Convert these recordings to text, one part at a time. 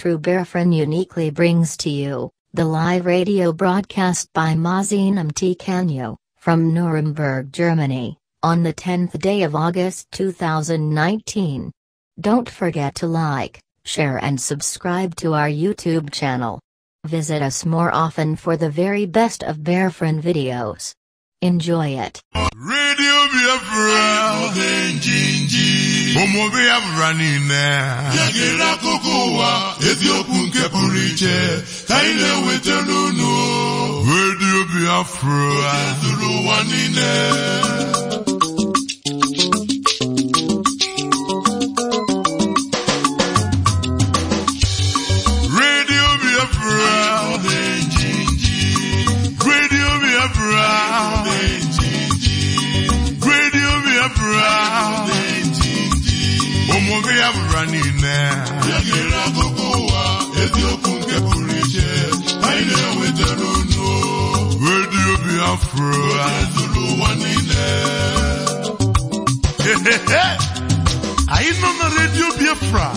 Truberefren uniquely brings to you the live radio broadcast by Mazinum T. Canyo from Nuremberg, Germany, on the 10th day of August 2019. Don't forget to like, share, and subscribe to our YouTube channel. Visit us more often for the very best of Bearfriend videos. Enjoy it. Radio Biafra. Biafra Radio Biafra. niile egere akụkọ ụwa eziokwu nke anyị nọ na redio Biafra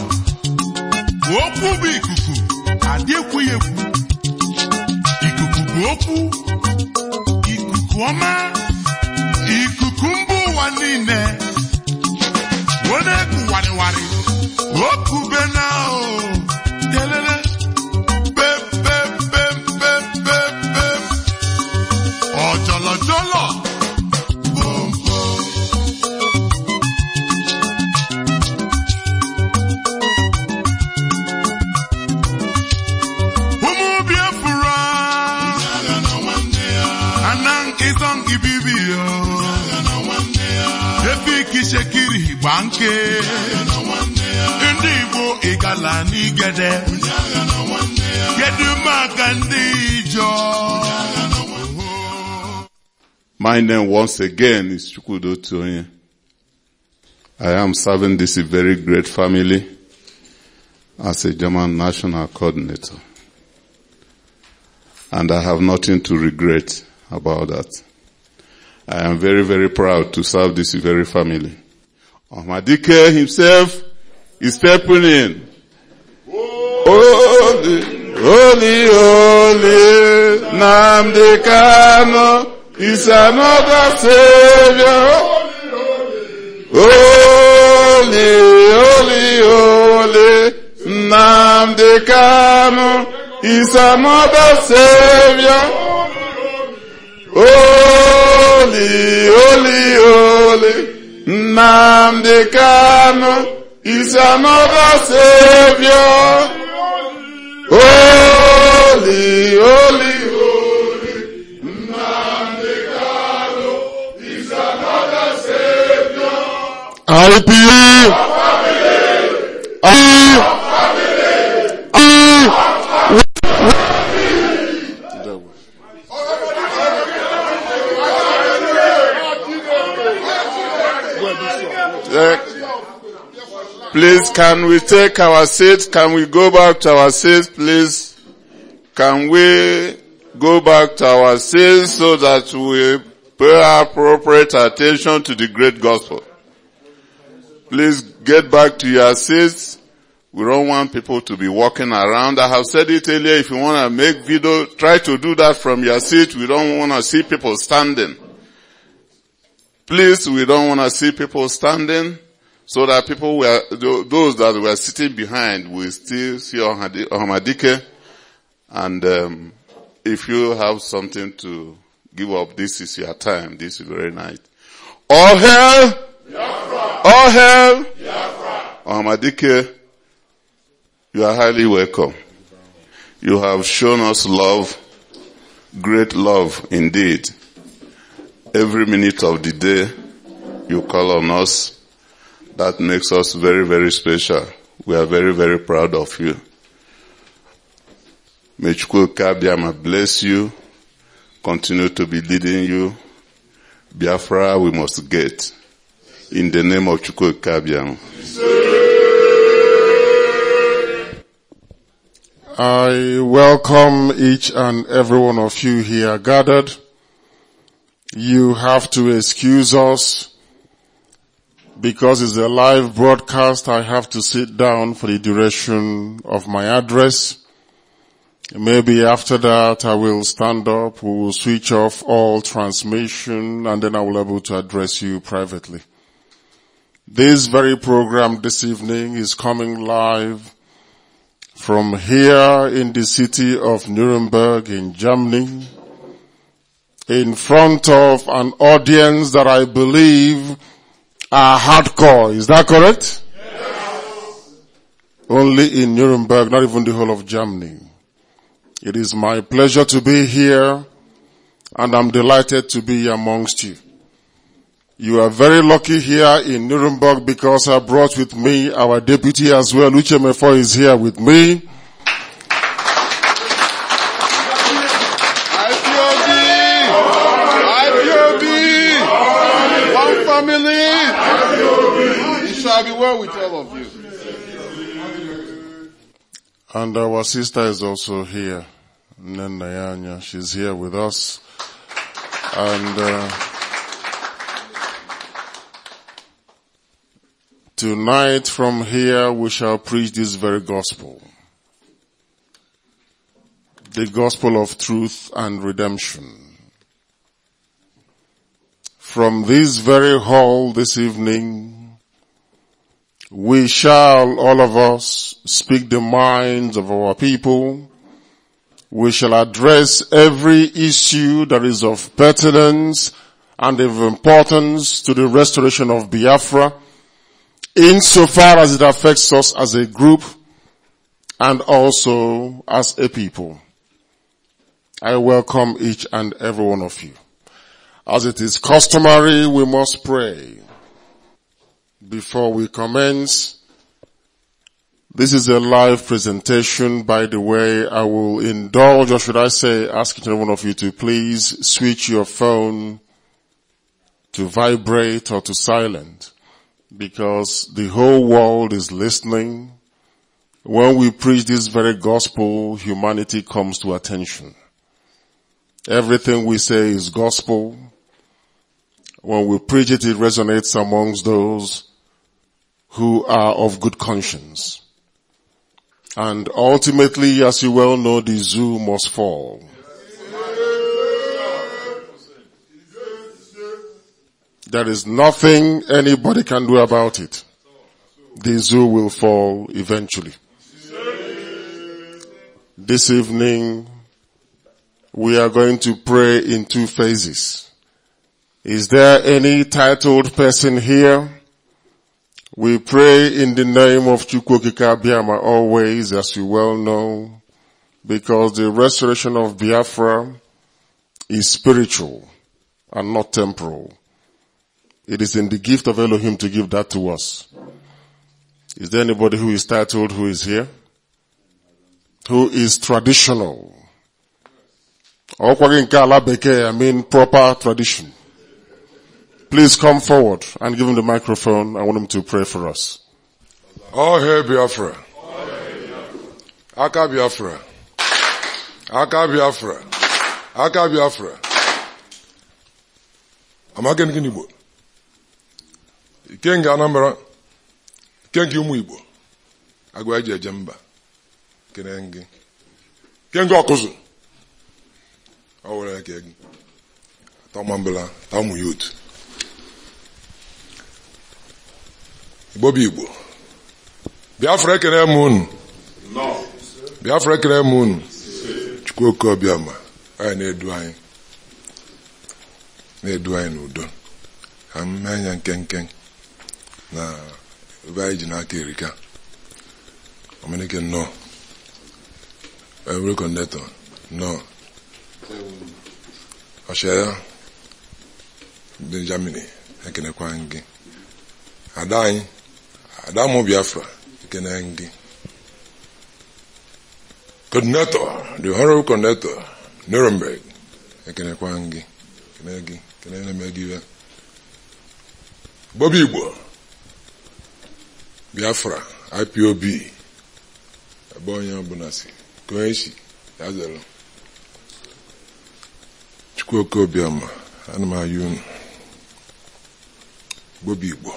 bụ okwu bụ ikuku adịekwughị ekwu ikuku bụ okwu ikuku ọma ikuku mba ụwa niile wee Look My name once again is Chukwudo Tionye. I am serving this very great family as a German national coordinator. And I have nothing to regret about that. I am very, very proud to serve this very family. Ahmadike himself is stepping in. Holy, holy, holy, Namde Kano is another Savior. Holy, holy, holy, Namde Kano is another Savior. Holy, holy, holy, Namde Kano is another Savior. Holy, holy, holy, is I believe. I believe. I believe. Please, can we take our seats? Can we go back to our seats, please? Can we go back to our seats so that we pay appropriate attention to the great gospel? Please get back to your seats. We don't want people to be walking around. I have said it earlier, if you want to make video, try to do that from your seat. We don't want to see people standing. Please, we don't want to see people standing so that people were, those that were sitting behind will still see Ahmadike. And um, if you have something to give up, this is your time. This is very night. All hail! All hail! Ahmadike, you are highly welcome. You have shown us love, great love indeed. Every minute of the day, you call on us that makes us very, very special. We are very, very proud of you. May Chukwuka bless you, continue to be leading you. Biafra we must get. In the name of Chukwuka I welcome each and every one of you here gathered. You have to excuse us because it's a live broadcast, I have to sit down for the duration of my address. Maybe after that I will stand up, we will switch off all transmission and then I will be able to address you privately. This very program this evening is coming live from here in the city of Nuremberg in Germany in front of an audience that I believe are uh, hardcore. Is that correct? Yes. Only in Nuremberg, not even the whole of Germany. It is my pleasure to be here and I'm delighted to be amongst you. You are very lucky here in Nuremberg because I brought with me our deputy as well. Uche Mefo is here with me. be well with all of you. And our sister is also here, Nenayanya. She's here with us. And uh, tonight from here we shall preach this very gospel. The gospel of truth and redemption from this very hall this evening, we shall, all of us, speak the minds of our people. We shall address every issue that is of pertinence and of importance to the restoration of Biafra insofar as it affects us as a group and also as a people. I welcome each and every one of you. As it is customary, we must pray before we commence. This is a live presentation, by the way. I will indulge, or should I say, ask each one of you to please switch your phone to vibrate or to silent because the whole world is listening. When we preach this very gospel, humanity comes to attention. Everything we say is gospel. When we preach it, it resonates amongst those who are of good conscience. And ultimately, as you well know, the zoo must fall. There is nothing anybody can do about it. The zoo will fall eventually. This evening, we are going to pray in two phases. Is there any titled person here? We pray in the name of Chukwokika Biama always, as you well know, because the restoration of Biafra is spiritual and not temporal. It is in the gift of Elohim to give that to us. Is there anybody who is titled who is here? Who is traditional? I mean proper tradition. Please come forward and give him the microphone. I want him to pray for us. All hail Biafra. Aka Biafra. Aka Biafra. Aka Biafra. Amaga nke Igbo. Ike nke Anambra. Ike nke ụmụ Igbo. Agwa eji Kene ngị. Ike nke Ọkụzụ. Ọ were eke gị. tamu youth. igbo bụ igbo biafra ekere m unu biafra ekere m unu chukwu oke obiọma anyị na-edu anyị na-edu anyị n'udo ka m mee anya nkenke na ebe anyị ji n'aka erika omenike nnọọ ewere kọndetọ nnọọ ọchịagha ndị germany ekenekwa kwa gị ada anyị Adamu Biafra Ikenengi. Coordinator, the Honorable Coordinator, Nuremberg Ekenekwangi. Kenegi, Kenenemegiwe. Bobby Igbo Biafra IPOB ebe onye ọbụla si koechi ya zere Chukwu oke obiọma ana Bobby Igbo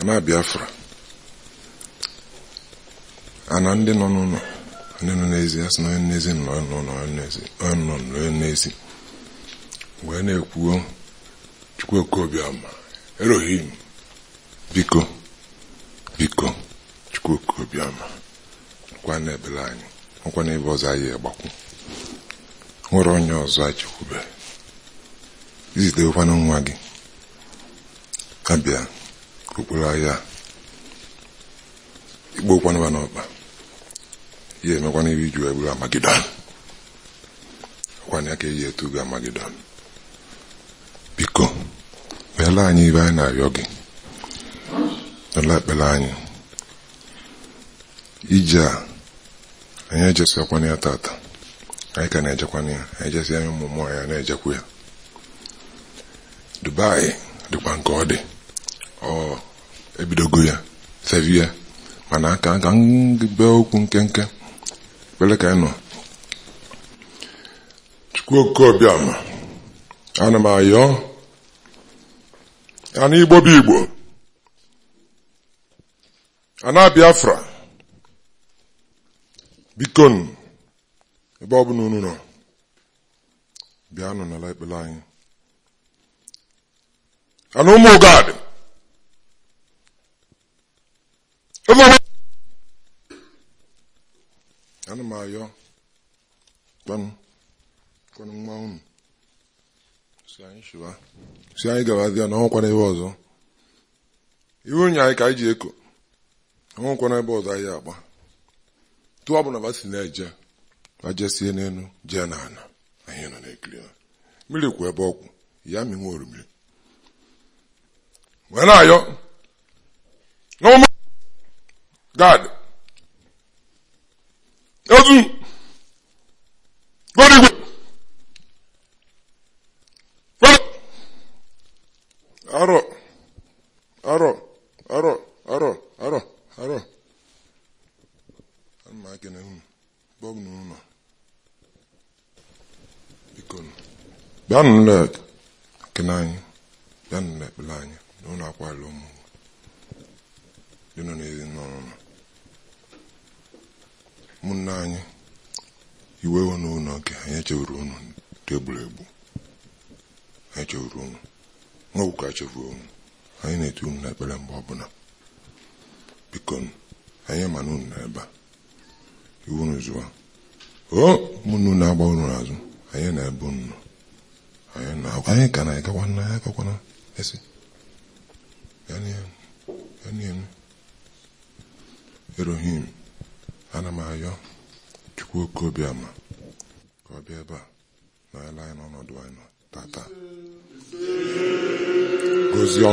ana biafra ana ndị nọ n'ụlọ ndị nọ n'ezi a sị na onye n'ezi nọ n'ụlọ onye nọ n'ezi wee na-ekwuo chukwu ama erohim biko biko chukwu nkwa kwa n'ebele anyị ọkwa n'ebe ọzọ anyị agbakwu nwere onye ọzọ anyị chekwube izitewekwana nwa gị abịa okporo ahịa igbo kwanụwa n'ọkpa ya emekwana ebe iju eburu amagidon ọkwana ya ka eji etugo amagidon biko meela anyị ibe anyị na-arịọ gị n'ụlọ ekpere anyị ije a anyị ejesikwana ya tata anyị ka na-ejekwana ya anyị jesi anyị ụmụ mmụọ ya na-ejekwa ya dubai dịkwa nke ọ dị ọ ebidogo ya sevi ya mana aka ka be okwu nkenke kpere ka anyị nọ chukwuokobiama ana m ayọ ana igbo bụ igbo ana biafra bikon ebe ọ bụla unu nọ nọ n'ala ekpere anyị ana ụmụ ụgadi ana m ayọ kpam kwanụ nwa unu si anyị shiwa si anyị gabazia na ọnwụkwana ebe ọzọ iwu onye anyị ka anyị ji eko ọnwụkwana ebe ọzọ anyị agba tụọ bụ na ba si na-eje ma jesie n'elu jee ana anyị nọ na-ekiri ha mmiri kwu ebe ọkwụ ya minwe orumiri wee na-ayọ n'ọma God. Ozu. Go Arọ. Arọ. Arọ. Arọ. Arọ. Arọ. I'm making unu. Bọg na unu. Biko nu. Bịa nụ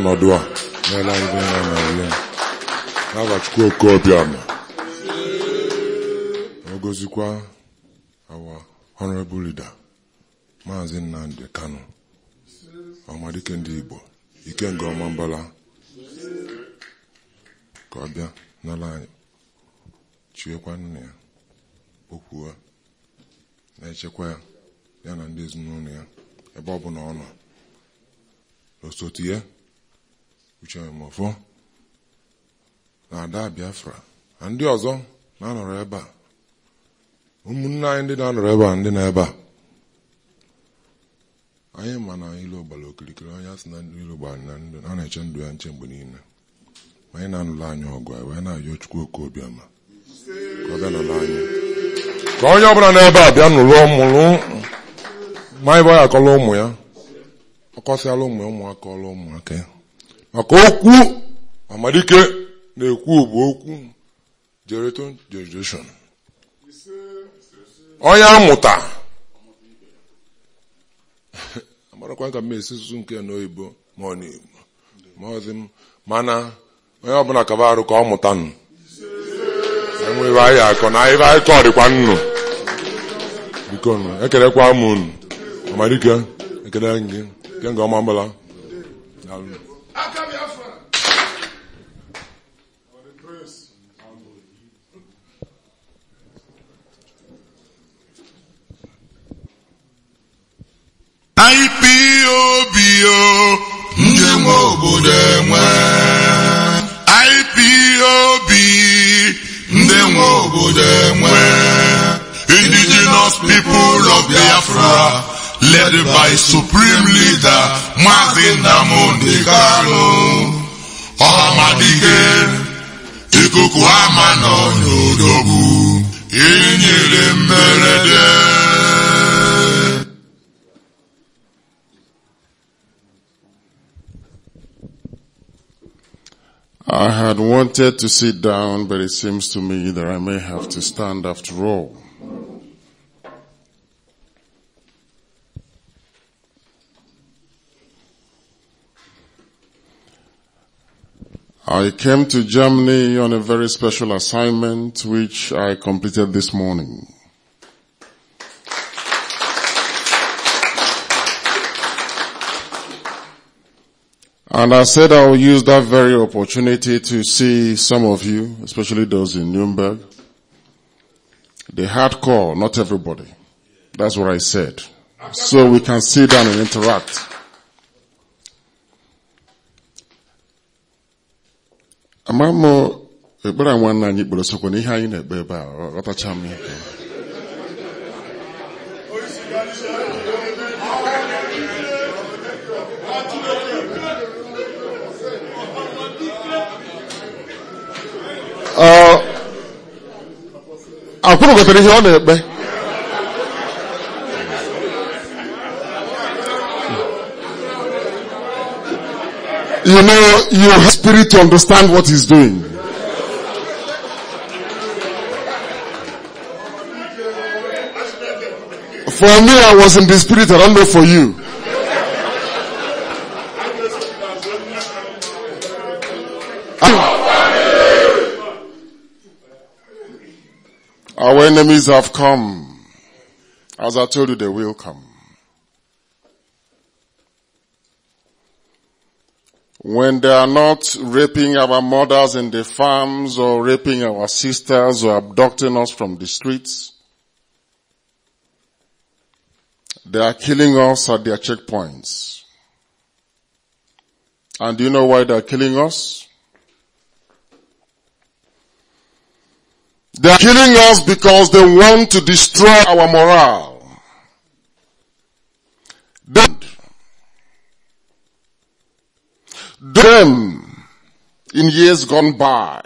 n'ọdụ a n'ala n'agbachukwu nọ ọbịa n'abachukwu okobiama a our honorable leader maazị Nnamdi Kanu ọmadike ndị Igbo ikenga ọma mbala ka ọ bịa n'ala anyị chiekwa nnụnụ ya okwuo na-echekwa ya na ndị ezinụlọ ya ebe ọ bụla osote ya abụọ na ada Biafra na ndị ọzọ na-anọrọ ebe a ụmụnne anyị ndị na-anọrọ ebe a ndị na ebe a anyị ma na ilo gbara okirikiri onye asị na ilo gbara na ndụ a na-eche ndụ ya nche mgbe niile ma anyị na-anụla anyị ọgụ anyị wee na-ayọ Chukwu oke obiọma ka ọ bịa nụrụ anyị ka onye ọbụla n'ebe a bịa nụrụ mụrụ ma anyị bụ ya akọla ụmụ ya ọ kọsịala ụmụ ya ụmụaka ọla ụmụaka ya maka okwu amalike na-ekwu bụ okwu generation generation onye amụta amarakwa ka m esi susu nke n'oyibo ma ọ n'igbo ma ọ dị m mana onye ọbụla kaba arụ ka ọ mụta nụ enweghị anyị akọ na ibe anyị kọrịkwa nnu biko nụ ekerekwa m unu amalike ekele gị nke ọma mbala daalụ IPOB o ndị nwe obodo enwe IPOB ndị nwe obodo enwe indigenous people of Biafra led by supreme leader Maazị Nnamdi Kanu ọhamadike ikuku ama nọ n'odogwu inyere mberede I had wanted to sit down, but it seems to me that I may have to stand after all. I came to Germany on a very special assignment which I completed this morning. And I said I will use that very opportunity to see some of you, especially those in Nuremberg. The hardcore, not everybody. That's what I said. So we can sit down and interact. Amamo, anyị ebe a, akụrụ gotere ihe ọ na-ekpe you know you have spirit to understand what he's doing for me i was in the spirit i don't know for you Our enemies have come. As I told you, they will come. When they are not raping our mothers in the farms or raping our sisters or abducting us from the streets, they are killing us at their checkpoints. And do you know why they are killing us? They are killing us because they want to destroy our morale. Then, in years gone by,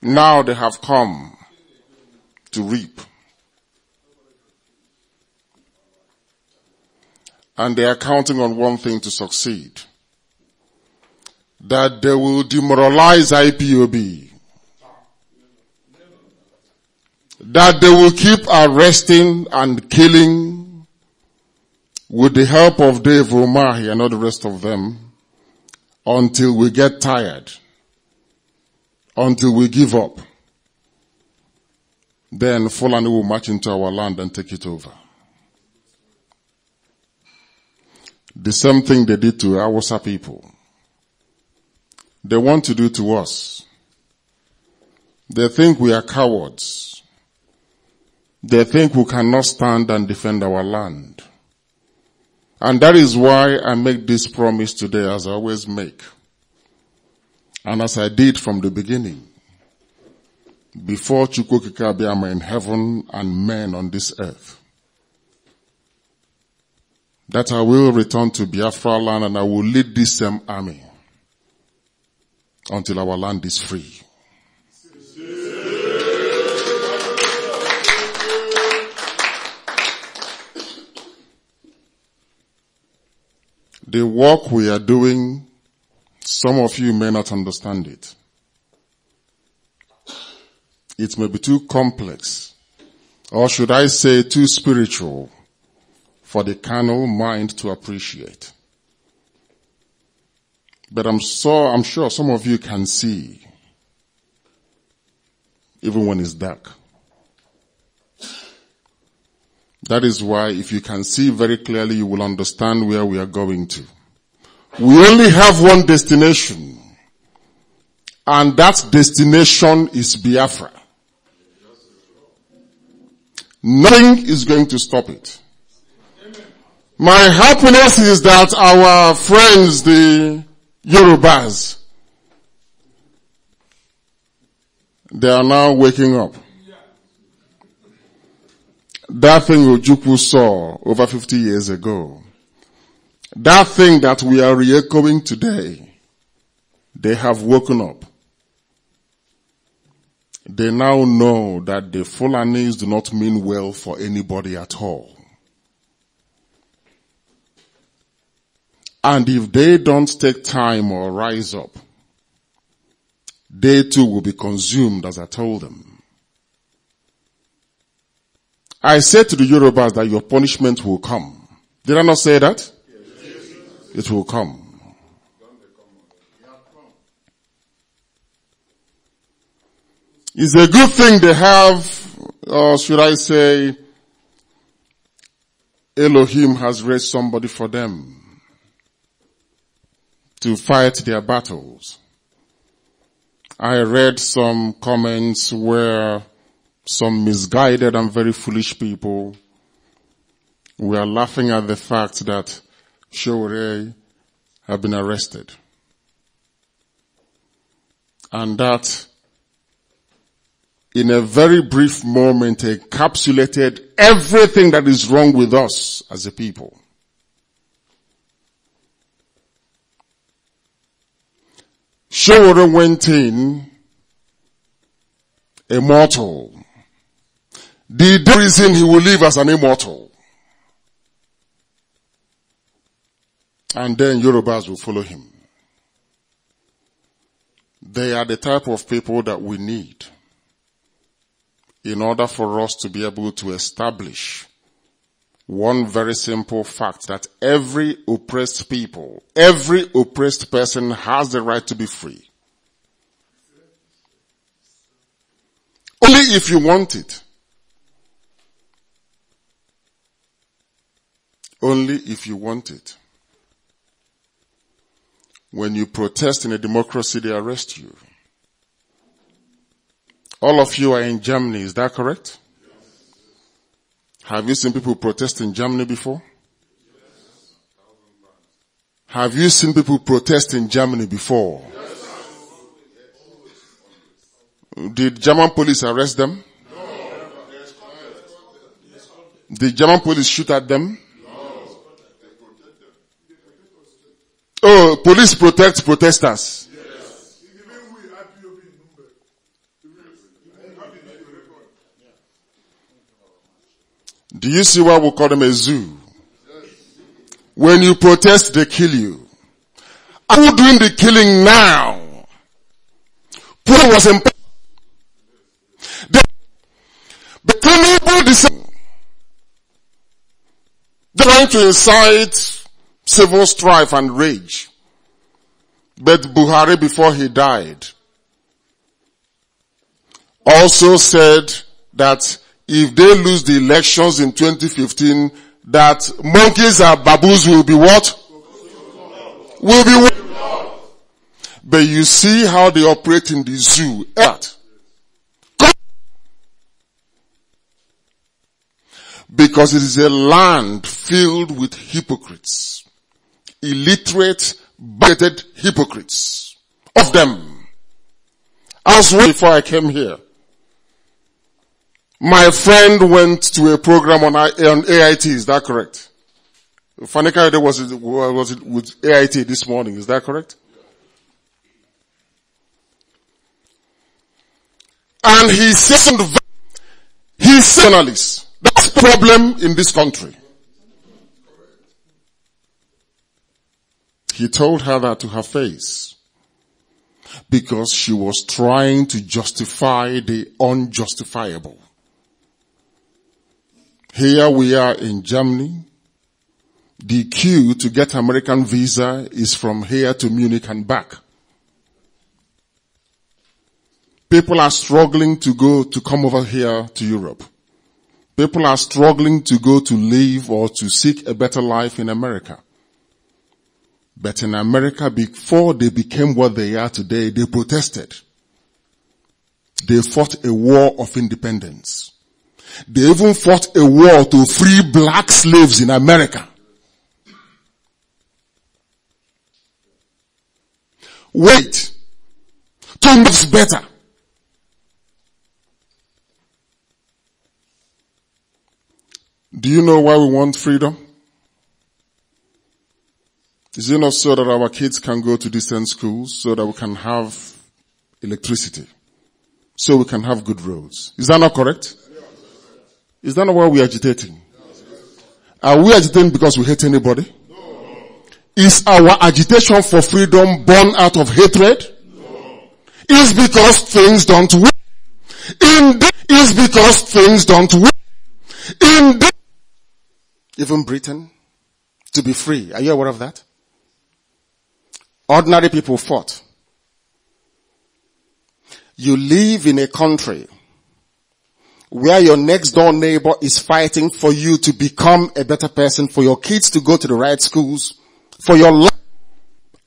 now they have come to reap. And they are counting on one thing to succeed. That they will demoralize IPOB that they will keep arresting and killing with the help of Dave Omahi and all the rest of them until we get tired, until we give up. Then Fulani will march into our land and take it over. The same thing they did to Awasa people. They want to do to us. They think we are cowards. They think we cannot stand and defend our land. And that is why I make this promise today as I always make. And as I did from the beginning. Before Chukwokikabiama in heaven and men on this earth. That I will return to Biafra land and I will lead this same army until our land is free. The work we are doing, some of you may not understand it. It may be too complex, or should I say too spiritual for the carnal mind to appreciate. But I'm so, I'm sure some of you can see even when it's dark. That is why if you can see very clearly, you will understand where we are going to. We only have one destination. And that destination is Biafra. Nothing is going to stop it. My happiness is that our friends, the Yorubas, they are now waking up that thing Ojukwu saw over 50 years ago, that thing that we are re-echoing today, they have woken up. They now know that the Fulanis do not mean well for anybody at all. And if they don't take time or rise up, they too will be consumed as I told them. I said to the Yorubas that your punishment will come. Did I not say that? Yes. It will come. It's a good thing they have, or should I say, Elohim has raised somebody for them to fight their battles. I read some comments where some misguided and very foolish people, we are laughing at the fact that Shore have been arrested. And that in a very brief moment encapsulated everything that is wrong with us as a people. Shore went in a mortal the reason he will live as an immortal. And then Yorubas will follow him. They are the type of people that we need in order for us to be able to establish one very simple fact that every oppressed people, every oppressed person has the right to be free. Only if you want it. only if you want it. When you protest in a democracy, they arrest you. All of you are in Germany, is that correct? Yes. Have you seen people protest in Germany before? Yes. Have you seen people protest in Germany before? Yes. Did German police arrest them? No. Did German police shoot at them? Oh, police protect protesters. Do you see why we call them a zoo? When you protest, they kill you. Are you doing the killing now? Paul was in they the able to trying to incite civil strife and rage. But Buhari, before he died, also said that if they lose the elections in 2015, that monkeys and baboons will be what? Will be what? But you see how they operate in the zoo. At. Because it is a land filled with hypocrites illiterate, bigoted hypocrites. Of them. As well before I came here. My friend went to a program on, on AIT, is that correct? Fanny Kayode was, was with AIT this morning, is that correct? And he said, he's journalist. That's the problem in this country. He told her that to her face because she was trying to justify the unjustifiable. Here we are in Germany. The queue to get American visa is from here to Munich and back. People are struggling to go to come over here to Europe. People are struggling to go to live or to seek a better life in America. But in America, before they became what they are today, they protested. They fought a war of independence. They even fought a war to free black slaves in America. Wait. two much better. Do you know why we want freedom? Is it not so that our kids can go to distant schools so that we can have electricity? So we can have good roads. Is that not correct? Is that not why we're agitating? Are we agitating because we hate anybody? No. Is our agitation for freedom born out of hatred? No. Is because things don't work. Indeed, is because things don't work. Indeed, even Britain, to be free. Are you aware of that? Ordinary people fought. You live in a country where your next door neighbor is fighting for you to become a better person, for your kids to go to the right schools, for your life.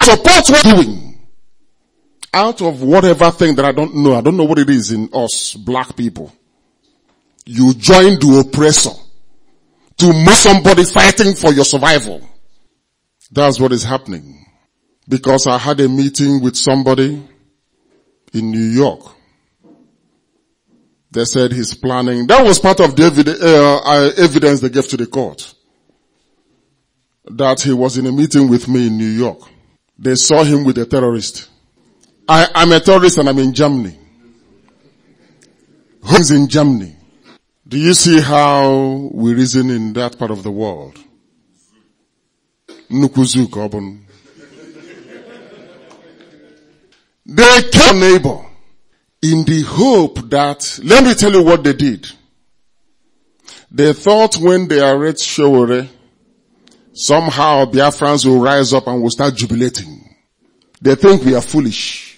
Support what you're doing. Out of whatever thing that I don't know, I don't know what it is in us black people. You join the oppressor to move somebody fighting for your survival. That's what is happening because I had a meeting with somebody in New York. They said he's planning. That was part of the uh, uh, evidence they gave to the court. That he was in a meeting with me in New York. They saw him with a terrorist. I, am a terrorist and I'm in Germany. Who's in Germany? Do you see how we reason in that part of the world? Nukuzuk, They killed neighbor in the hope that, let me tell you what they did. They thought when they arrest Shore, somehow Biafrans will rise up and will start jubilating. They think we are foolish.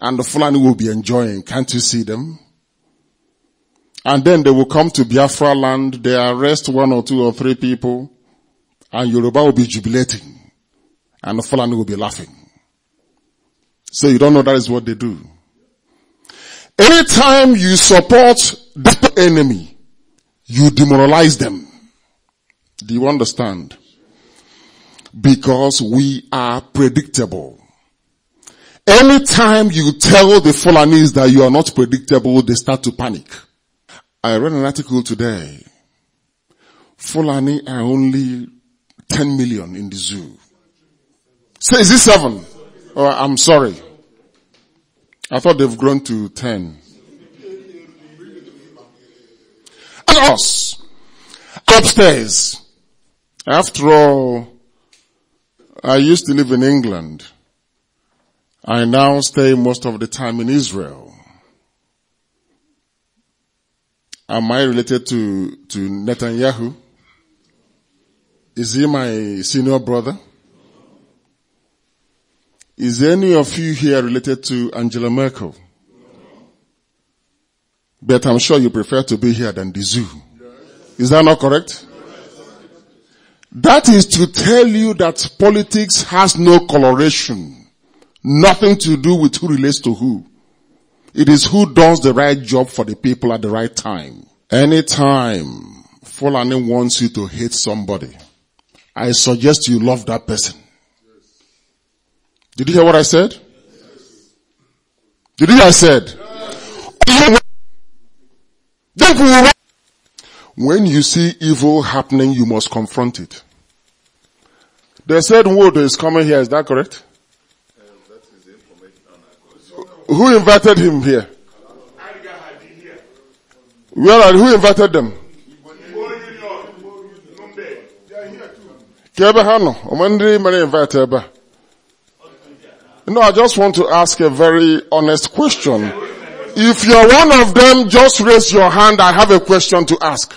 And the Fulani will be enjoying. Can't you see them? And then they will come to Biafra land, they arrest one or two or three people, and Yoruba will be jubilating. And the Fulani will be laughing. So you don't know that is what they do. Anytime you support that enemy, you demoralize them. Do you understand? Because we are predictable. Anytime you tell the Fulanese that you are not predictable, they start to panic. I read an article today. Fulani are only 10 million in the zoo. so is this seven? Oh, I'm sorry. I thought they've grown to 10. And us. Upstairs. After all, I used to live in England. I now stay most of the time in Israel. Am I related to, to Netanyahu? Is he my senior brother? Is any of you here related to Angela Merkel? But I'm sure you prefer to be here than the zoo. Is that not correct? That is to tell you that politics has no coloration. Nothing to do with who relates to who. It is who does the right job for the people at the right time. Anytime Fulani wants you to hate somebody, I suggest you love that person. Did you hear what I said? Did you hear what I said? When you see evil happening, you must confront it. The said word is coming here, is that correct? Um, um, who invited him here? Where are, who invited them? No, I just want to ask a very honest question. If you're one of them, just raise your hand. I have a question to ask.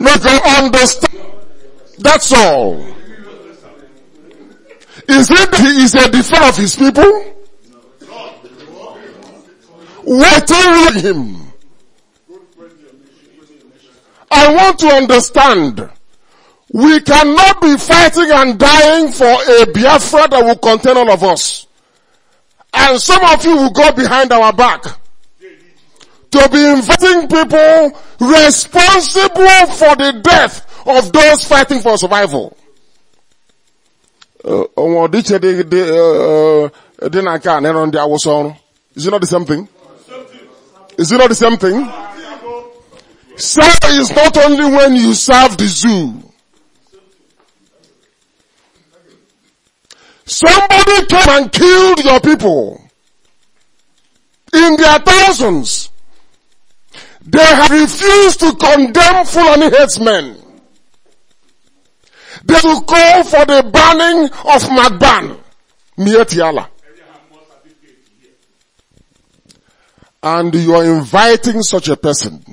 Make them understand. That's all. Is it he is a defender of his people? What are him? I want to understand. We cannot be fighting and dying for a Biafra that will contain all of us. And some of you will go behind our back. To be inviting people responsible for the death of those fighting for survival. Uh, uh, uh, is it not the same thing? Is it not the same thing? Serve is not only when you serve the zoo. Somebody came and killed your people in their thousands. They have refused to condemn Fulani headsmen. They will call for the banning of Magban, Mietiala. And you are inviting such a person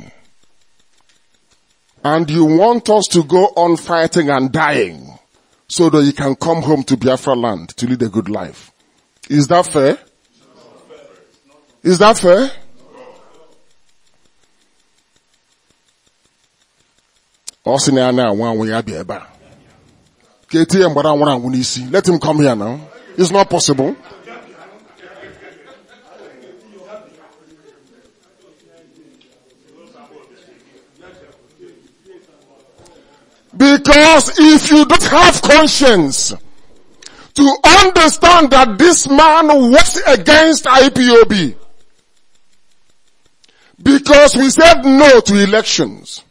and you want us to go on fighting and dying so that you can come home to Biafra land to lead a good life. Is that fair? Is that fair? Let him come here now. It's not possible. Because if you don't have conscience to understand that this man works against IPOB, because we said no to elections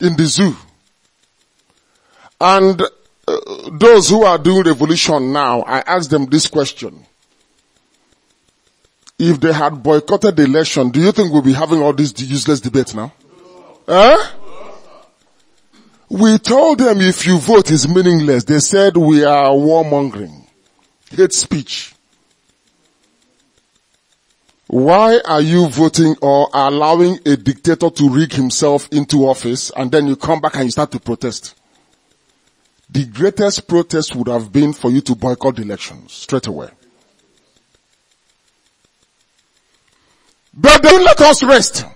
in the zoo. And uh, those who are doing revolution now, I ask them this question. If they had boycotted the election, do you think we'll be having all this useless debate now? No. Eh? We told them if you vote is meaningless. They said we are warmongering. Hate speech. Why are you voting or allowing a dictator to rig himself into office and then you come back and you start to protest? The greatest protest would have been for you to boycott the elections straight away. But don't let us rest.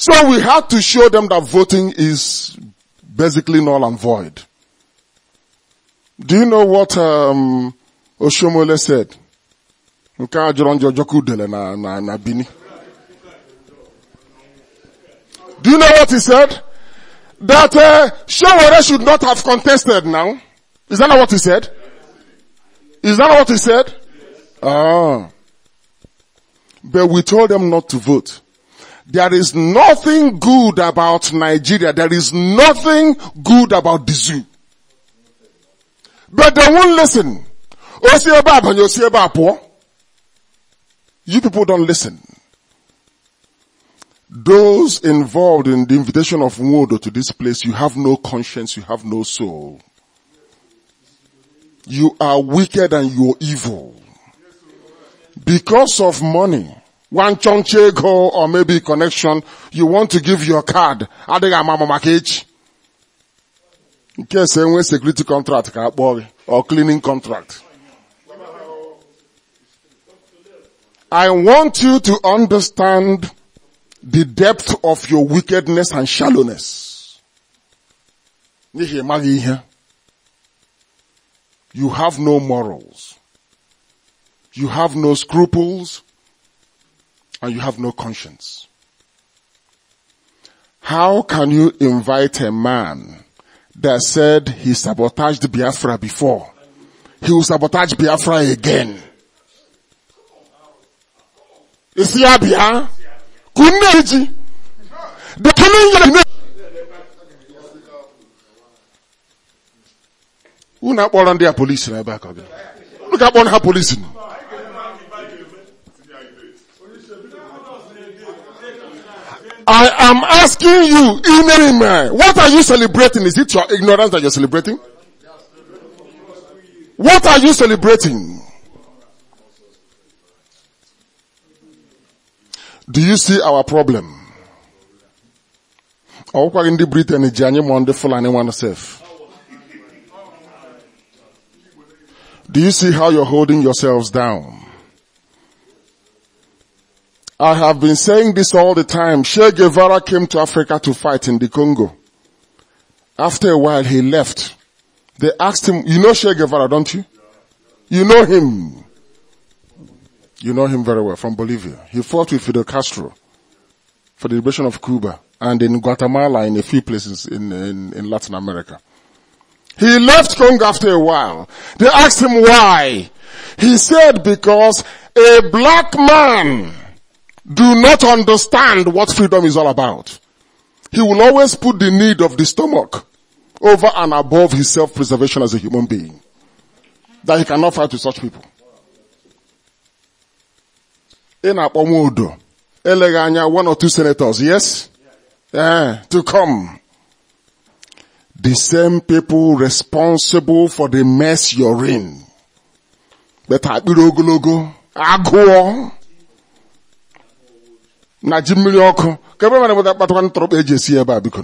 So we had to show them that voting is basically null and void. Do you know what um, Oshomole said? Do you know what he said? That uh, should not have contested now. Is that not what he said? Is that not what he said? Ah. But we told them not to vote. There is nothing good about Nigeria. There is nothing good about the zoo. But they won't listen. You people don't listen. Those involved in the invitation of Mwodo to this place, you have no conscience, you have no soul. You are wicked and you're evil. Because of money, one chonche go or maybe connection, you want to give your card. Adịghị Mama maka echi. Nke ese security contract ka or cleaning contract. I want you to understand the depth of your wickedness and shallowness. You have no morals. You have no scruples and you have no conscience. How can you invite a man that said he sabotaged Biafra before? He will sabotage Biafra again. Is he Abia? Kuneji. The coming. Who not born on their police in the back of Look at one her police. In. I am asking you, ignorant what are you celebrating? Is it your ignorance that you're celebrating? What are you celebrating? Do you see our problem? Do you see how you're holding yourselves down? I have been saying this all the time. Che Guevara came to Africa to fight in the Congo. After a while, he left. They asked him, you know Che Guevara, don't you? You know him. You know him very well from Bolivia. He fought with Fidel Castro for the liberation of Cuba and in Guatemala in a few places in, in, in Latin America. He left Congo after a while. They asked him why. He said because a black man do not understand what freedom is all about. He will always put the need of the stomach over and above his self-preservation as a human being. That he cannot fight with such people. In Apomodo, Eleganya, one or two senators, yes? Yeah, to come. The same people responsible for the mess you're in. But I Agụọ na ji mmiri ọkụ ka ebe mara bụta kpatakwa e eji esi ebe a biko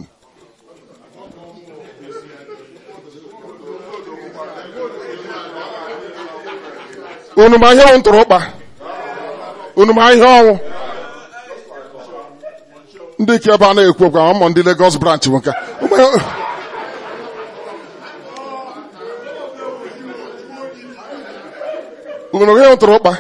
unu ma ihe bụ ntụrụkpa unu ma ihe ọnwụ ndị ike ebe a na-ekwu okwu ndị Lagos branch nwoke unu ma ihe bụ ntụrụkpa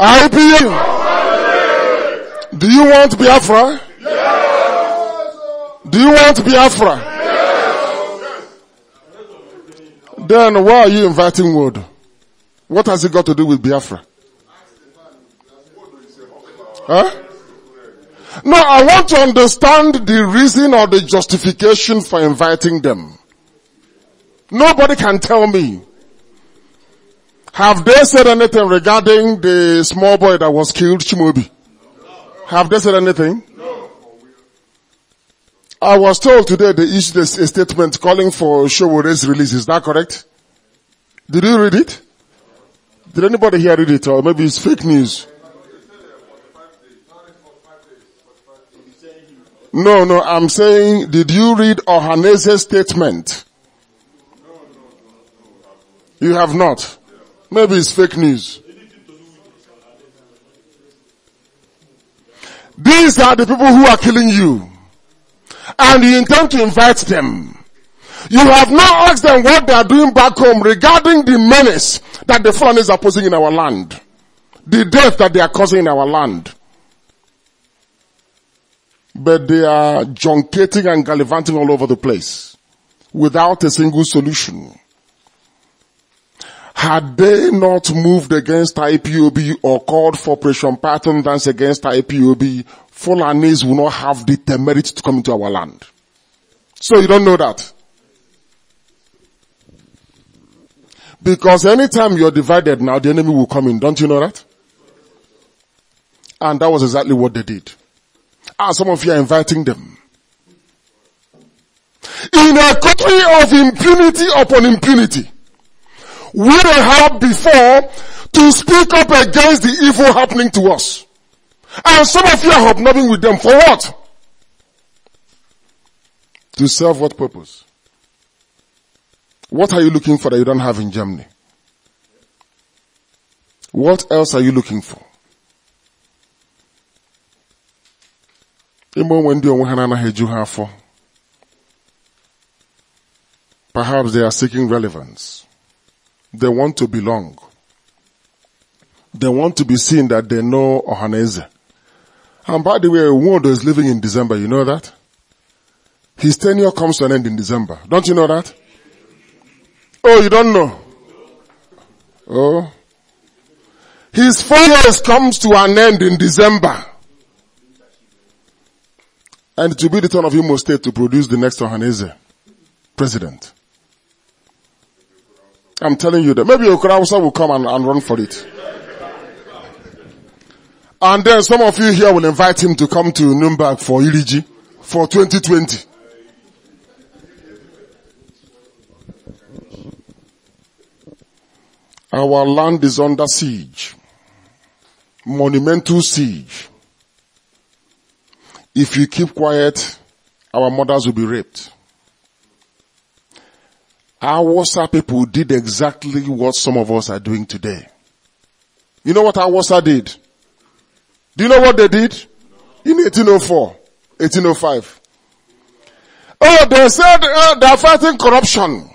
IPU. Do you want Biafra? Yes. Do you want Biafra? Yes. Then why are you inviting wood? What has it got to do with Biafra? Huh? No, I want to understand the reason or the justification for inviting them. Nobody can tell me. Have they said anything regarding the small boy that was killed, Chimobi? Have they said anything? No. I was told today they issued a statement calling for Showore's release. Is that correct? Did you read it? Did anybody here read it or maybe it's fake news? No, no, I'm saying, did you read Ohanese's statement? You have not. Maybe it's fake news. These are the people who are killing you. And you intend to invite them. You have not asked them what they are doing back home regarding the menace that the foreigners are posing in our land. The death that they are causing in our land. But they are junketing and gallivanting all over the place without a single solution. Had they not moved against IPOB or called for pressure pattern dance against IPOB, Fulanese would not have the temerity to come into our land. So you don't know that. Because anytime you're divided now, the enemy will come in. Don't you know that? And that was exactly what they did. And ah, some of you are inviting them. In a country of impunity upon impunity, we have before to speak up against the evil happening to us. And some of you are hobnobbing with them for what? To serve what purpose? What are you looking for that you don't have in Germany? What else are you looking for? Perhaps they are seeking relevance. They want to belong. They want to be seen that they know Ohaneze. And by the way, Wodo is living in December. You know that? His tenure comes to an end in December. Don't you know that? Oh, you don't know? Oh. His four years comes to an end in December. And it will be the turn of Imo State to produce the next Ohaneze president. I'm telling you that. Maybe Okurausa will come and, and run for it. And then some of you here will invite him to come to Nuremberg for Iliji for 2020. Our land is under siege. Monumental siege. If you keep quiet, our mothers will be raped. Our WhatsApp people did exactly what some of us are doing today. You know what our WhatsApp did? Do you know what they did? In 1804, 1805. Oh, they said uh, they are fighting corruption.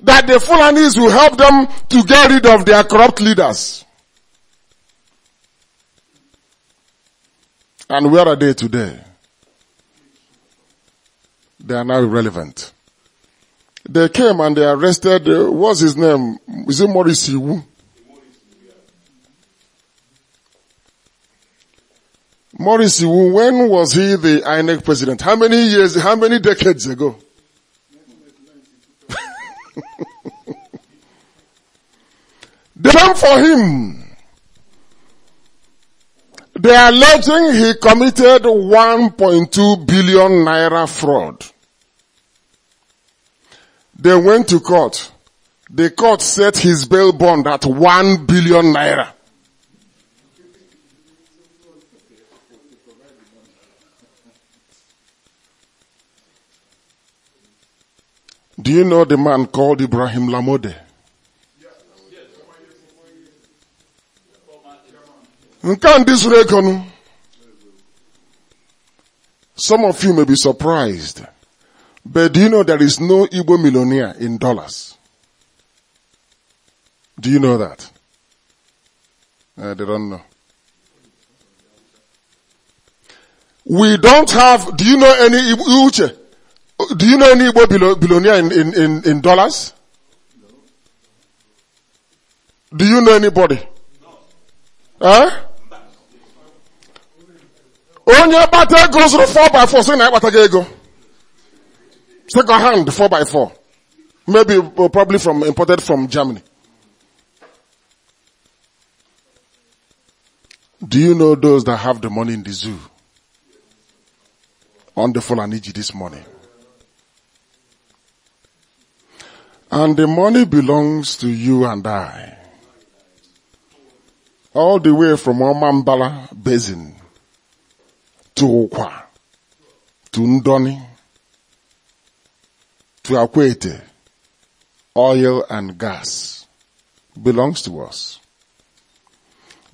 That the Fulanis will help them to get rid of their corrupt leaders. And where are they today? They are now irrelevant. They came and they arrested, uh, what's his name? Is it Maurice Iwu? Maurice Iwu, when was he the INEC president? How many years, how many decades ago? they came for him. They are alleging he committed 1.2 billion naira fraud. They went to court. The court set his bail bond at one billion naira. Do you know the man called Ibrahim Lamode? Some of you may be surprised. But do you know there is no Igbo millionaire in dollars? Do you know that? Uh, they don't know. We don't have, do you know any Uche? Do you know any Igbo billionaire in, in, in, in dollars? Do you know anybody? Only a kpata goes zụrụ 4 by 4 sị na Second hand, four by four. Maybe, uh, probably from, imported from Germany. Do you know those that have the money in the zoo? On the you this morning. And the money belongs to you and I. All the way from Omambala Basin to Okwa, to Ndoni, to Akwete, oil and gas belongs to us.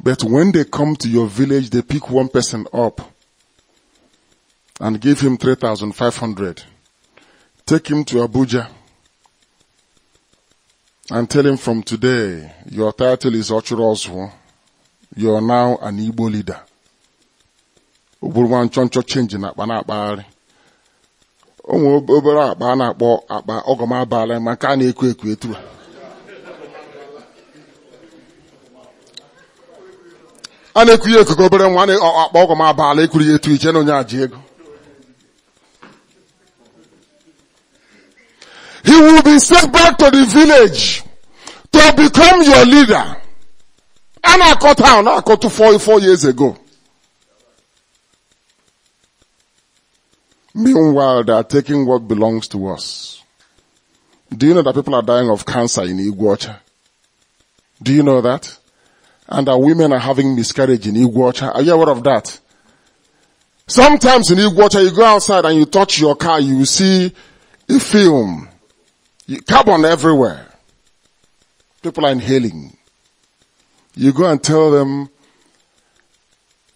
But when they come to your village, they pick one person up and give him 3,500. Take him to Abuja and tell him from today, your title is Ochurozwo. You are now an Igbo leader. Oburwan choncho change na akpa ụmụ obere akpa a na-akpọ akpa ọgọm abalị ma nke a na-ekwo ekwo etu a na-ekwu ya ekuku obere nwa akpa ọgọm abalị ekwuru ya etu iche na onye aji ego he will be sent back to the village to become your leader a na-akọ town na-akọ 4 years ago Meanwhile, they are taking what belongs to us. Do you know that people are dying of cancer in Iguacha? Do you know that? And that women are having miscarriage in Iguacha. Are you aware of that? Sometimes in Iguacha, you go outside and you touch your car, you see a film. Carbon everywhere. People are inhaling. You go and tell them,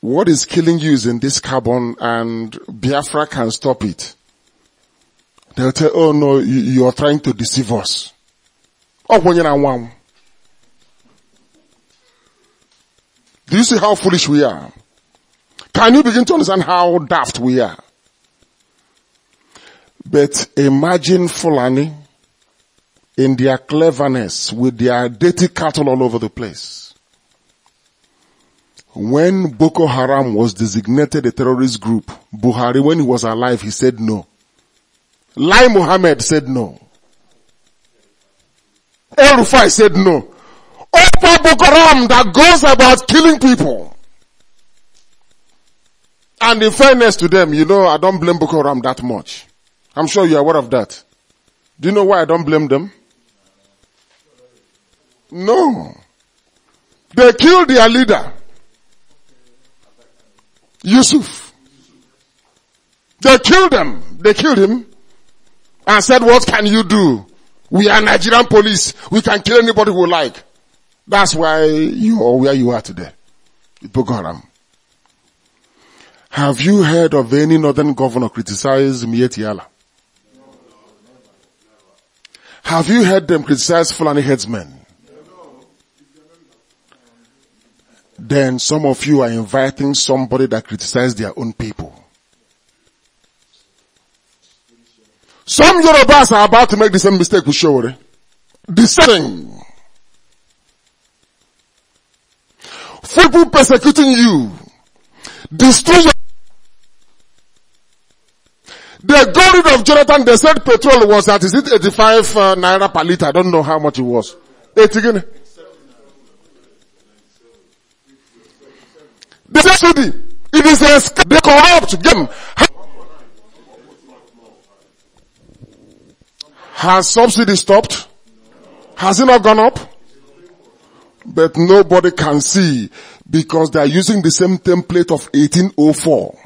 what is killing you is in this carbon and Biafra can stop it. They'll tell, oh no, you, you are trying to deceive us. Oh, when you're one. Do you see how foolish we are? Can you begin to understand how daft we are? But imagine Fulani in their cleverness with their dirty cattle all over the place. When Boko Haram was designated a terrorist group, Buhari, when he was alive, he said no. Lai Mohammed said no. El Rufai said no. Opa Boko Haram that goes about killing people. And in fairness to them, you know, I don't blame Boko Haram that much. I'm sure you're aware of that. Do you know why I don't blame them? No. They killed their leader. Yusuf. They killed him. They killed him and said, what can you do? We are Nigerian police. We can kill anybody we like. That's why you are where you are today. Boko Have you heard of any northern governor criticize Mietiala? Have you heard them criticize Fulani headsmen? then some of you are inviting somebody that criticizes their own people. Some Yorubas are about to make the same mistake with Shore. The same. People persecuting you. Destroy your... They got rid of Jonathan. They said petrol was at, is it 85 uh, naira per liter? I don't know how much it was. 80 guinea. They say It is a scam. They corrupt them. Has subsidy stopped? Has it not gone up? But nobody can see because they are using the same template of 1804.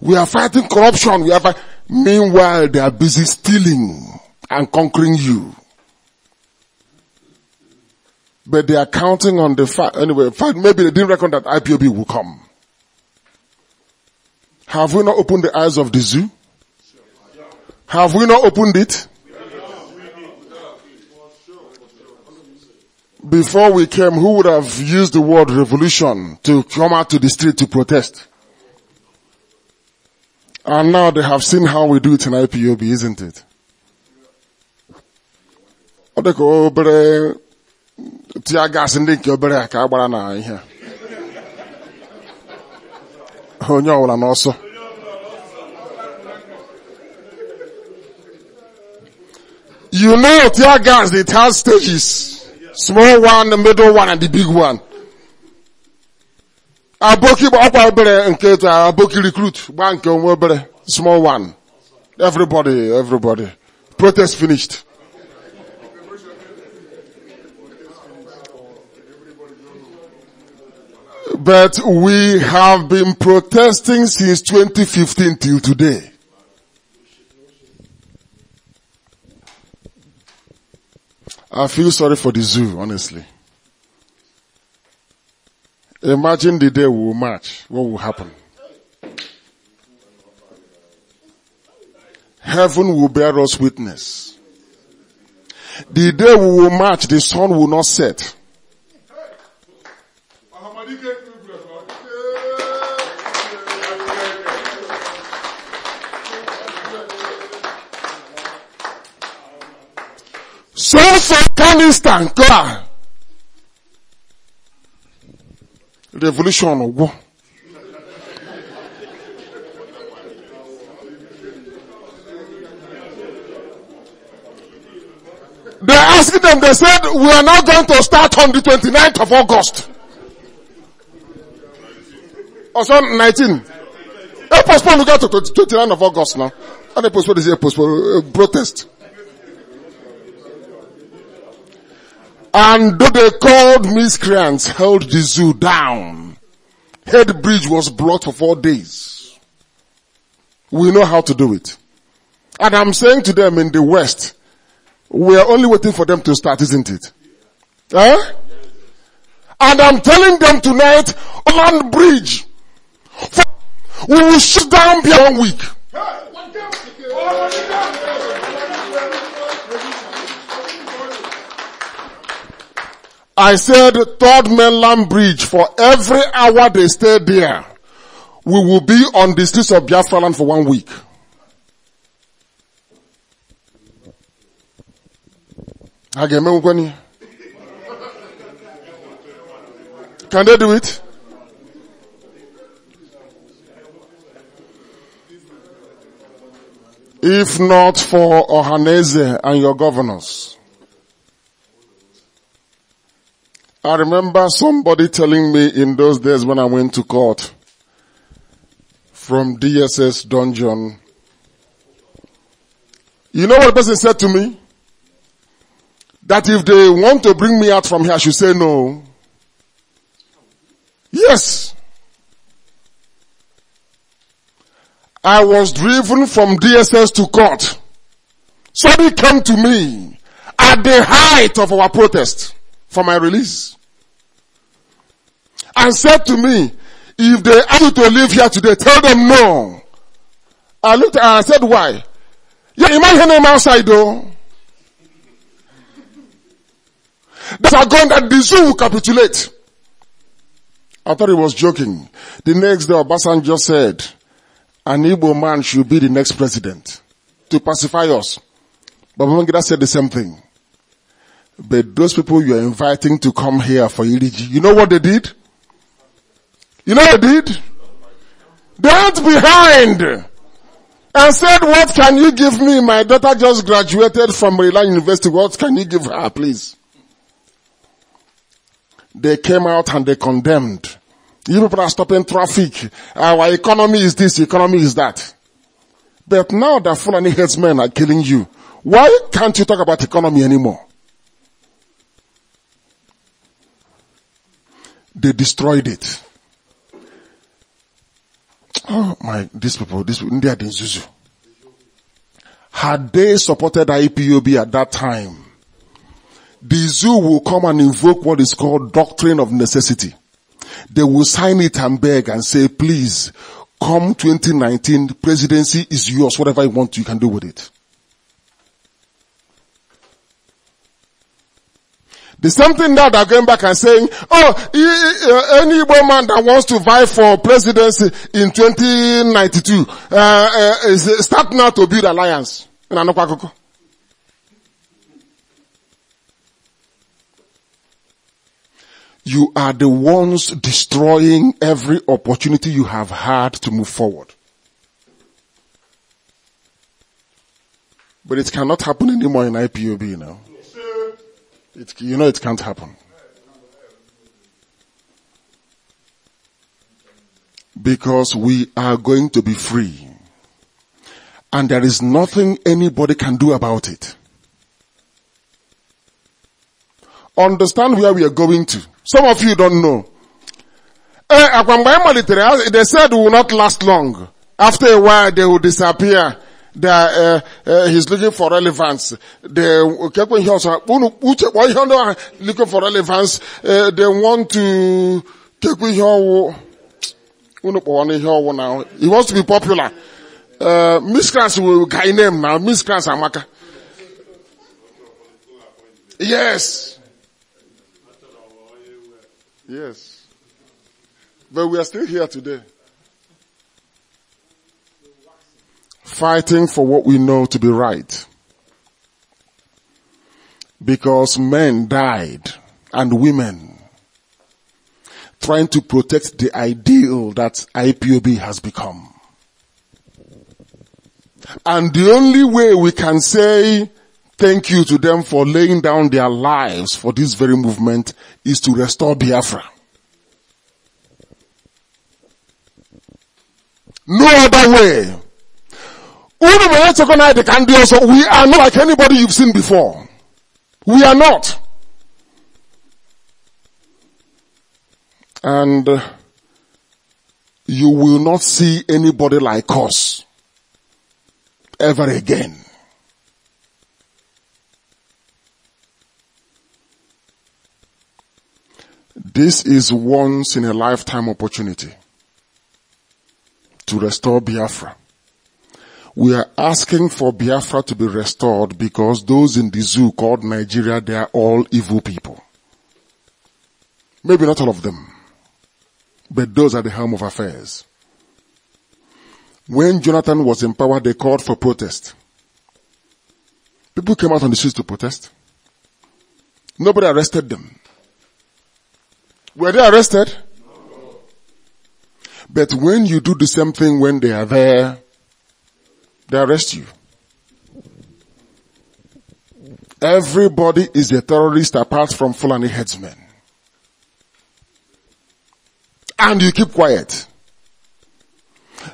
We are fighting corruption. We are fight- Meanwhile, they are busy stealing and conquering you. But they are counting on the fact, anyway, fact, maybe they didn't reckon that IPOB will come. Have we not opened the eyes of the zoo? Have we not opened it? Before we came, who would have used the word revolution to come out to the street to protest? And now they have seen how we do it in IPOB, isn't it? Oh, tia gaasị in the obere a ka a gbara na ihe a onye ọbụla n'ọsọ you know tear gas it has stages small one the middle one and the big one I aboki ọkwa obere nke etu aboki recruit gba nke onwe obere small one everybody everybody protest finished But we have been protesting since 2015 till today. I feel sorry for the zoo, honestly. Imagine the day we will march. What will happen? Heaven will bear us witness. The day we will march, the sun will not set. So-so Afghanistan kla. Revolution war. They asked them, they said, we are now going to start on the 29th of August. some 19. They postponed, we got to 29th of August now. And they postponed, they say, postponed, uh, protest. And though they called miscreants held the zoo down, head bridge was blocked for four days. We know how to do it. And I'm saying to them in the West, we are only waiting for them to start, isn't it? Eh? And I'm telling them tonight, land bridge. We will shut down beyond one week. I said third mainland bridge for every hour they stay there, we will be on the streets of Biafra land for one week. Can they do it? If not for Ohaneze and your governors. I remember somebody telling me in those days when I went to court from DSS dungeon. You know what the person said to me? That if they want to bring me out from here, I should say no. Yes. I was driven from DSS to court. Somebody came to me at the height of our protest for my release. And said to me, if they ask you to live here today, tell them no. I looked at her and I said, why? Yeah, imagine them outside though. They are going that the zoo will capitulate. I thought he was joking. The next day, Obasan just said, an able man should be the next president to pacify us. But Babangida said the same thing. But those people you are inviting to come here for EDG, you know what they did? You know what they did? They went behind and said, what can you give me? My daughter just graduated from Maryland University. What can you give her, please? They came out and they condemned. You people are stopping traffic. Our economy is this, economy is that. But now that Fulani headsmen are killing you, why can't you talk about economy anymore? They destroyed it. Oh my, these people, this India, India Zuzu. Had they supported IPOB at that time, the zoo will come and invoke what is called doctrine of necessity. They will sign it and beg and say, please, come 2019, presidency is yours, whatever you want, you can do with it. There's something that are going back and saying, oh, uh, any Igbo man that wants to vie for presidency in 2092 uh, uh, uh, start now to build alliance. You are the ones destroying every opportunity you have had to move forward. But it cannot happen anymore in IPOB now. It, you know it can't happen. Because we are going to be free. And there is nothing anybody can do about it. Understand where we are going to. Some of you don't know. Eh, they said we will not last long. After a while they will disappear that uh, uh, he's looking for relevance. The kekwe ihe ọsọ unu uche looking for relevance. Uh, they want to kekwe ihe ọwụ unu kpọwa na ihe ọwụ na he wants to be popular. Uh, Miss Class will guy name now. Miss Class Amaka. Yes. Yes. But we are still here today. fighting for what we know to be right. Because men died and women trying to protect the ideal that IPOB has become. And the only way we can say thank you to them for laying down their lives for this very movement is to restore Biafra. No other way. We are not like anybody you've seen before. We are not. And uh, you will not see anybody like us ever again. This is once in a lifetime opportunity to restore Biafra. We are asking for Biafra to be restored because those in the zoo called Nigeria, they are all evil people. Maybe not all of them, but those are the helm of affairs. When Jonathan was in power, they called for protest. People came out on the streets to protest. Nobody arrested them. Were they arrested? But when you do the same thing when they are there, they arrest you. Everybody is a terrorist apart from Fulani headsmen. And you keep quiet.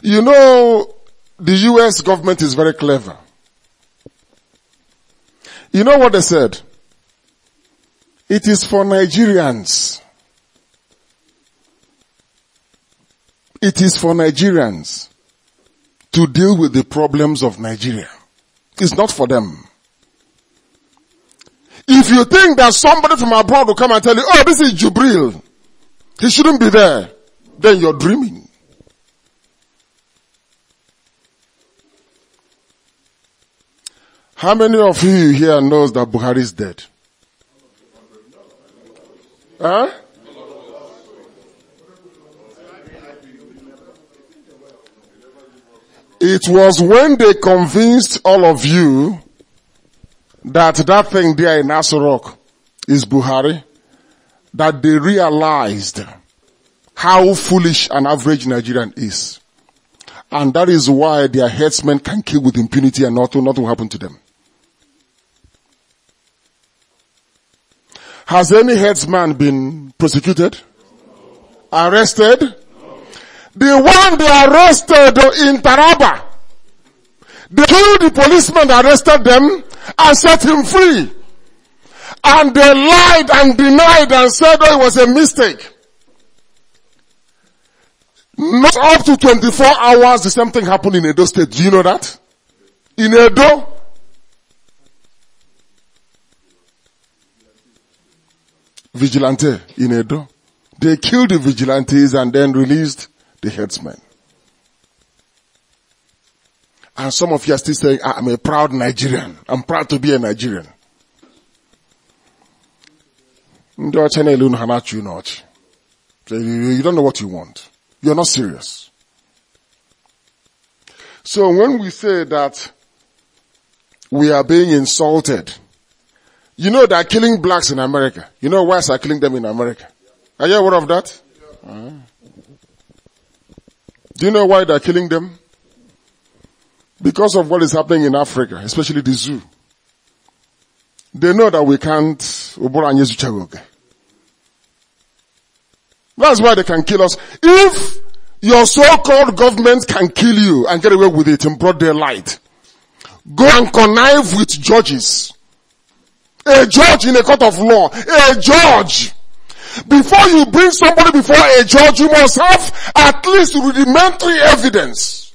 You know, the US government is very clever. You know what they said? It is for Nigerians. It is for Nigerians to deal with the problems of Nigeria. It's not for them. If you think that somebody from abroad will come and tell you, oh, this is Jubril, he shouldn't be there, then you're dreaming. How many of you here knows that Buhari is dead? Huh? It was when they convinced all of you that that thing there in Asurok is Buhari that they realized how foolish an average Nigerian is. And that is why their headsmen can kill with impunity and nothing, nothing will happen to them. Has any headsman been prosecuted? Arrested? The one they arrested in Taraba, they killed the policeman that arrested them and set him free. And they lied and denied and said oh, it was a mistake. Not up to 24 hours, the same thing happened in Edo State. Do you know that? In Edo, vigilante in Edo. They killed the vigilantes and then released the headsman. And some of you are still saying, ah, I'm a proud Nigerian. I'm proud to be a Nigerian. You don't know what you want. You're not serious. So when we say that we are being insulted, you know they're killing blacks in America. You know whites are killing them in America. Are you aware of that? Uh-huh. Do you know why they're killing them? Because of what is happening in Africa, especially the zoo. They know that we can't, that's why they can kill us. If your so-called government can kill you and get away with it in broad daylight, go and connive with judges. A judge in a court of law, a judge before you bring somebody before a judge, you must have at least rudimentary evidence.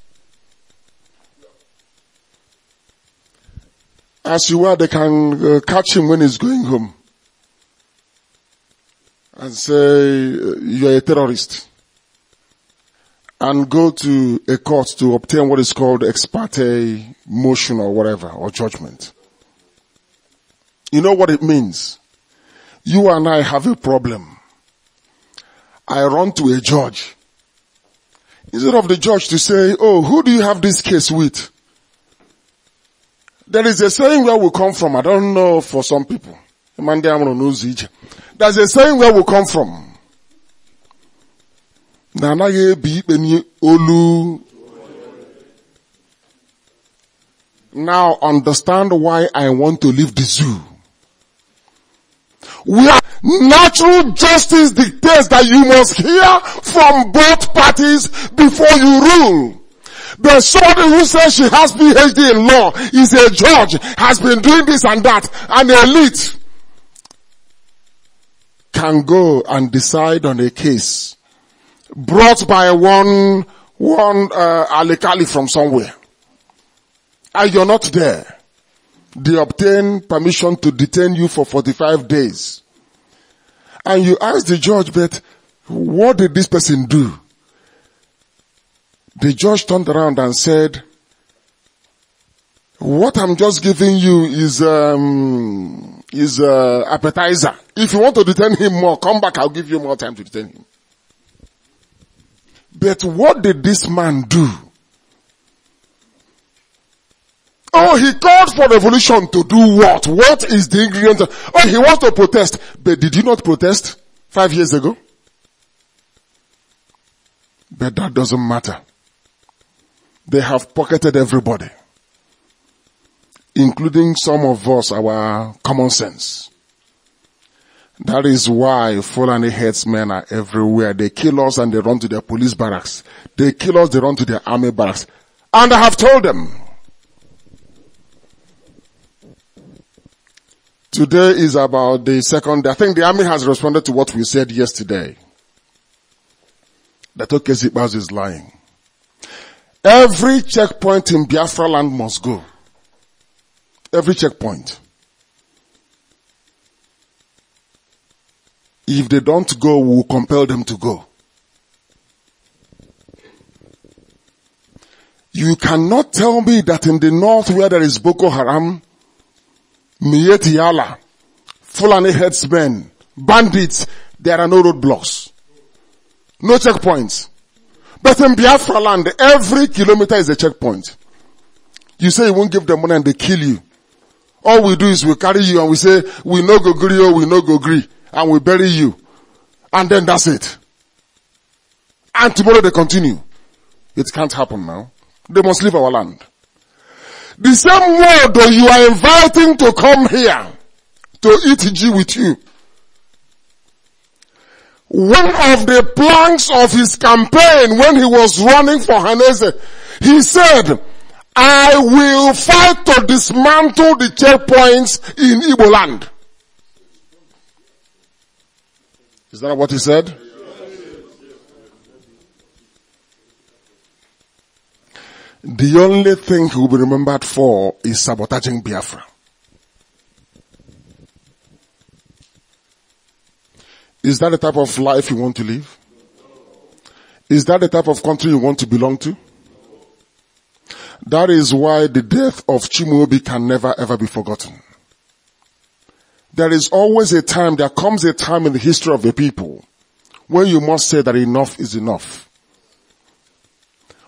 As you are, they can uh, catch him when he's going home and say, uh, you're a terrorist and go to a court to obtain what is called ex parte motion or whatever, or judgment. You know what it means? You and I have a problem. I run to a judge. Instead of the judge to say, oh, who do you have this case with? There is a saying where we come from. I don't know for some people. There's a saying where we come from. Now understand why I want to leave the zoo. We are, natural justice dictates that you must hear from both parties before you rule. The somebody who says she has PhD in law is a judge, has been doing this and that, and the elite can go and decide on a case brought by one one uh, from somewhere, and you're not there they obtain permission to detain you for 45 days. And you ask the judge, but what did this person do? The judge turned around and said, what I'm just giving you is, um, is uh, appetizer. If you want to detain him more, come back, I'll give you more time to detain him. But what did this man do? Oh, he called for revolution to do what? What is the ingredient? Oh, he wants to protest. But did you not protest five years ago? But that doesn't matter. They have pocketed everybody. Including some of us, our common sense. That is why Fulani headsmen are everywhere. They kill us and they run to their police barracks. They kill us, they run to their army barracks. And I have told them, Today is about the second day. I think the army has responded to what we said yesterday. That Okezi is lying. Every checkpoint in Biafra land must go. Every checkpoint. If they don't go, we'll compel them to go. You cannot tell me that in the north where there is Boko Haram, Mieti Yala, Fulani headsmen, bandits, there are no roadblocks. No checkpoints. But in Biafra land, every kilometer is a checkpoint. You say you won't give them money and they kill you. All we do is we carry you and we say, we no go agree, oh, we no go gree, And we bury you. And then that's it. And tomorrow they continue. It can't happen now. They must leave our land. The same that you are inviting to come here to eat G with you. One of the planks of his campaign when he was running for Hanese, he said, I will fight to dismantle the checkpoints in Igbo land. Is that what he said? the only thing he will be remembered for is sabotaging Biafra. Is that the type of life you want to live? Is that the type of country you want to belong to? That is why the death of Chimuobi can never ever be forgotten. There is always a time, there comes a time in the history of the people when you must say that enough is enough.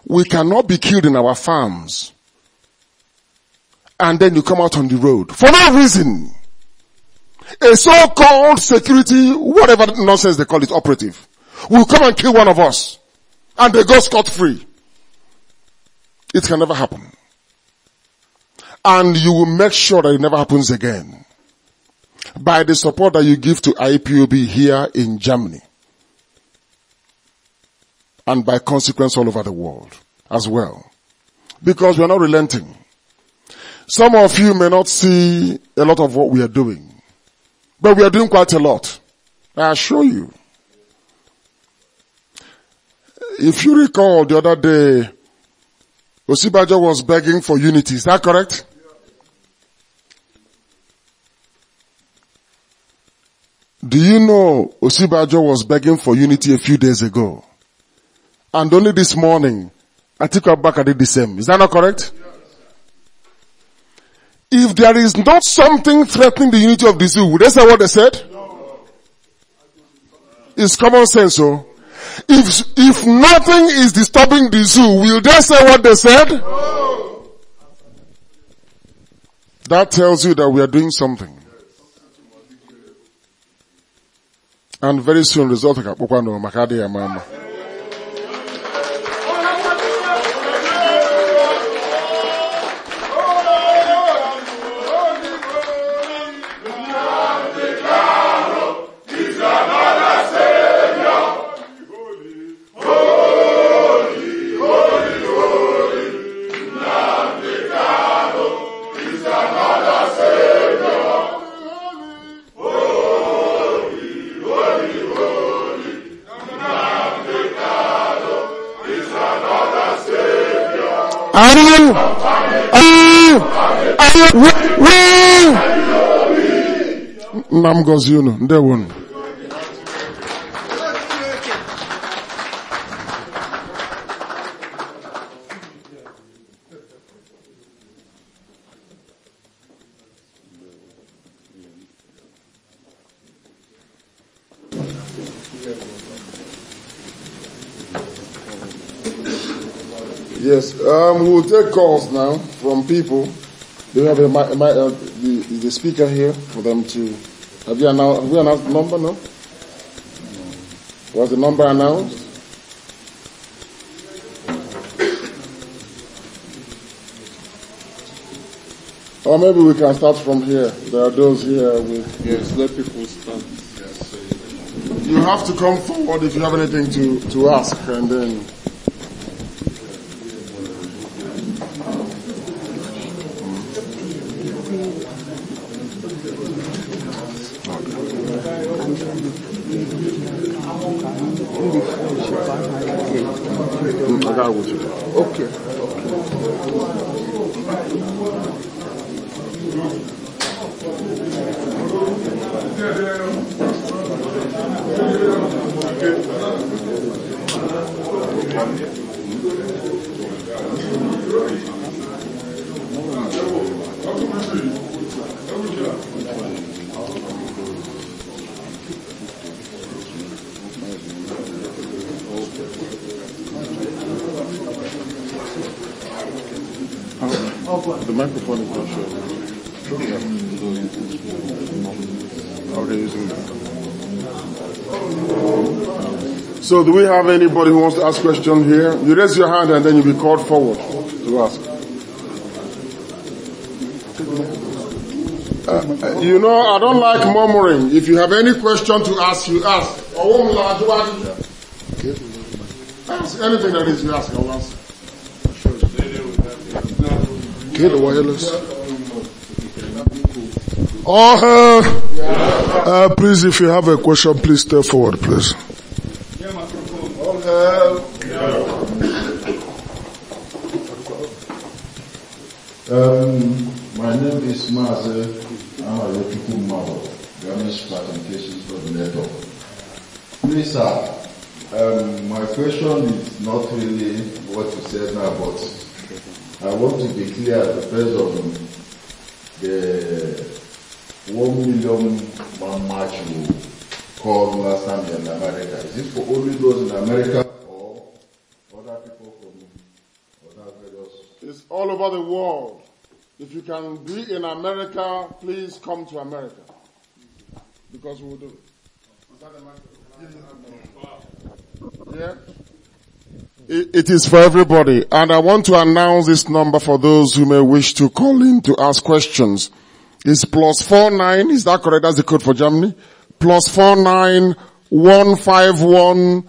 We cannot be killed in our farms. And then you come out on the road. For no reason. A so-called security, whatever nonsense they call it, operative, will come and kill one of us. And they go scot-free. It can never happen. And you will make sure that it never happens again. By the support that you give to IPOB here in Germany and by consequence all over the world as well. Because we are not relenting. Some of you may not see a lot of what we are doing, but we are doing quite a lot. I assure you. If you recall the other day, Osibajo was begging for unity. Is that correct? Do you know Osibajo was begging for unity a few days ago? And only this morning, I took her back. and did the same. Is that not correct? If there is not something threatening the unity of the zoo, would they say what they said? It's common sense, so. Oh. If, if nothing is disturbing the zoo, will they say what they said? That tells you that we are doing something. And very soon result will come. Are Are Are you? you? you? عن Nnam gọzie unu ndewo unu Yes, um, we will take calls now from people. Do we have a, a, a, uh, the, the speaker here for them to? Have you announced? Have we announced the number? No. Was the number announced? Or maybe we can start from here. There are those here with. Yes, let people start. You have to come forward if you have anything to, to ask, and then. So do we have anybody who wants to ask question here? You raise your hand and then you'll be called forward to ask. Uh, uh you know, I don't like murmuring. If you have any question to ask, you ask. Ask anything that is you ask, I'll answer. Get the wireless. Oh, uh, uh, please, if you have a question, please step forward, please. based on the 1 million man march you called last time in America. Is it for only those in America or other people from other various? It's all over the world. If you can be in America, please come to America. Because we will do it. Yeah? It is for everybody. And I want to announce this number for those who may wish to call in to ask questions. It's plus four nine, is that correct? That's the code for Germany. Plus four nine one five one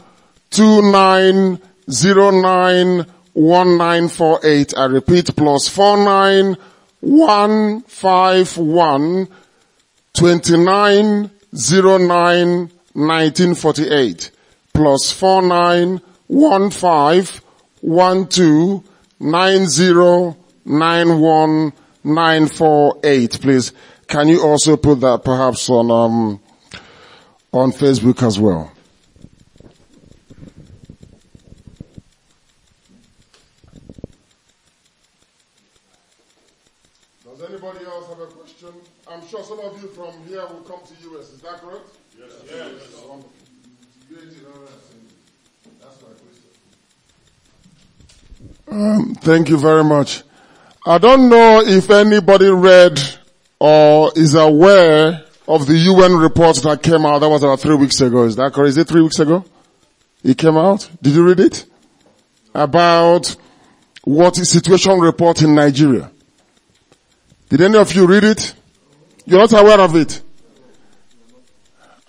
two nine zero nine one nine four eight. I repeat, plus four nine one five one twenty nine zero nine nineteen forty eight. Plus four nine one five one two nine zero nine one nine four eight. Please, can you also put that perhaps on um, on Facebook as well? Does anybody else have a question? I'm sure some of you from here will come Um, thank you very much. I don't know if anybody read or is aware of the UN report that came out. That was about three weeks ago. Is that correct? Is it three weeks ago? It came out. Did you read it? About what is situation report in Nigeria. Did any of you read it? You're not aware of it?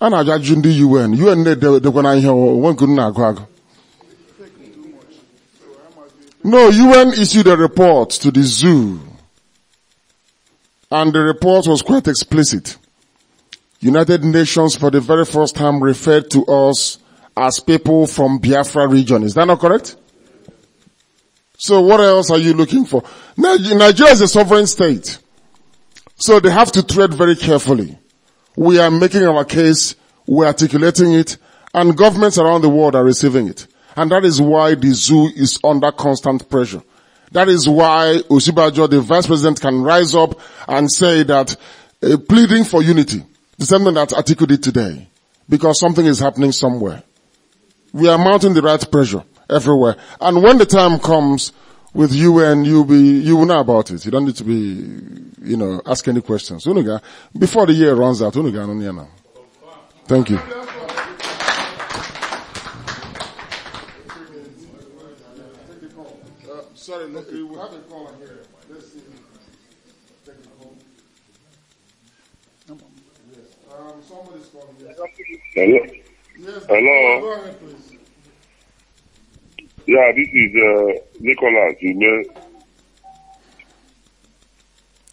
A na-ajụ ajụjụ UN. UN they edekwana ihe o nwe nke na-agụ no, UN issued a report to the zoo. And the report was quite explicit. United Nations for the very first time referred to us as people from Biafra region. Is that not correct? So what else are you looking for? Nigeria is a sovereign state. So they have to tread very carefully. We are making our case, we're articulating it, and governments around the world are receiving it. And that is why the zoo is under constant pressure. That is why Usibajo, the vice president, can rise up and say that uh, pleading for unity, the same thing that Atiku did today, because something is happening somewhere. We are mounting the right pressure everywhere. And when the time comes with UN, you'll be, you will know about it. You don't need to be, you know, ask any questions. Before the year runs out, thank you. Sorry, look, it was. i call calling here. Let's see. Take it home. Yes. Um, somebody's calling. Yes. Hello. Yes. Hello. Go ahead, please. Yeah, this is uh, Nicholas. You know.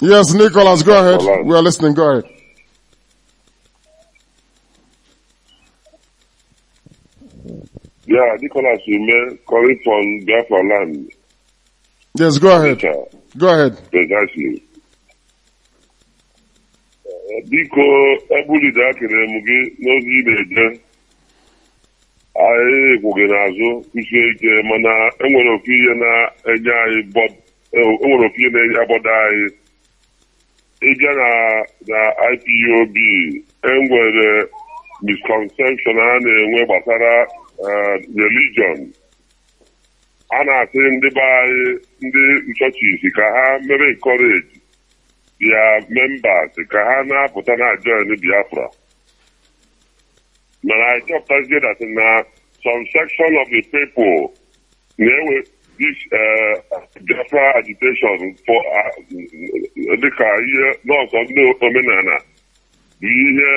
Yes, Nicholas, go ahead. Nicholas. We are listening. Go ahead. Yeah, Nicholas you Ume, calling from Biafra Yes, go ahead. Go ahead. Precisely. Uh, biko, ebulide akere m gị n'ozi ị na-eje. Anyị kwụghị n'azụ kwụsie ike mana enwere ofu ihe na-enye anyị enwere ofu ihe na-enye anyị. Ịbịa na na IPOB enwere misconception a na-enwe gbasara uh, religion. A na-asị ndị be anyị ndị nchọchisi ka ha mere nkọreji bịa membas ka ha na-apụta na join biafra mana anyị dị that na some section of the people na-ewe this eh, biafra agitation for eh, dịka ihe nọọsọ ndị omenala bụ ihe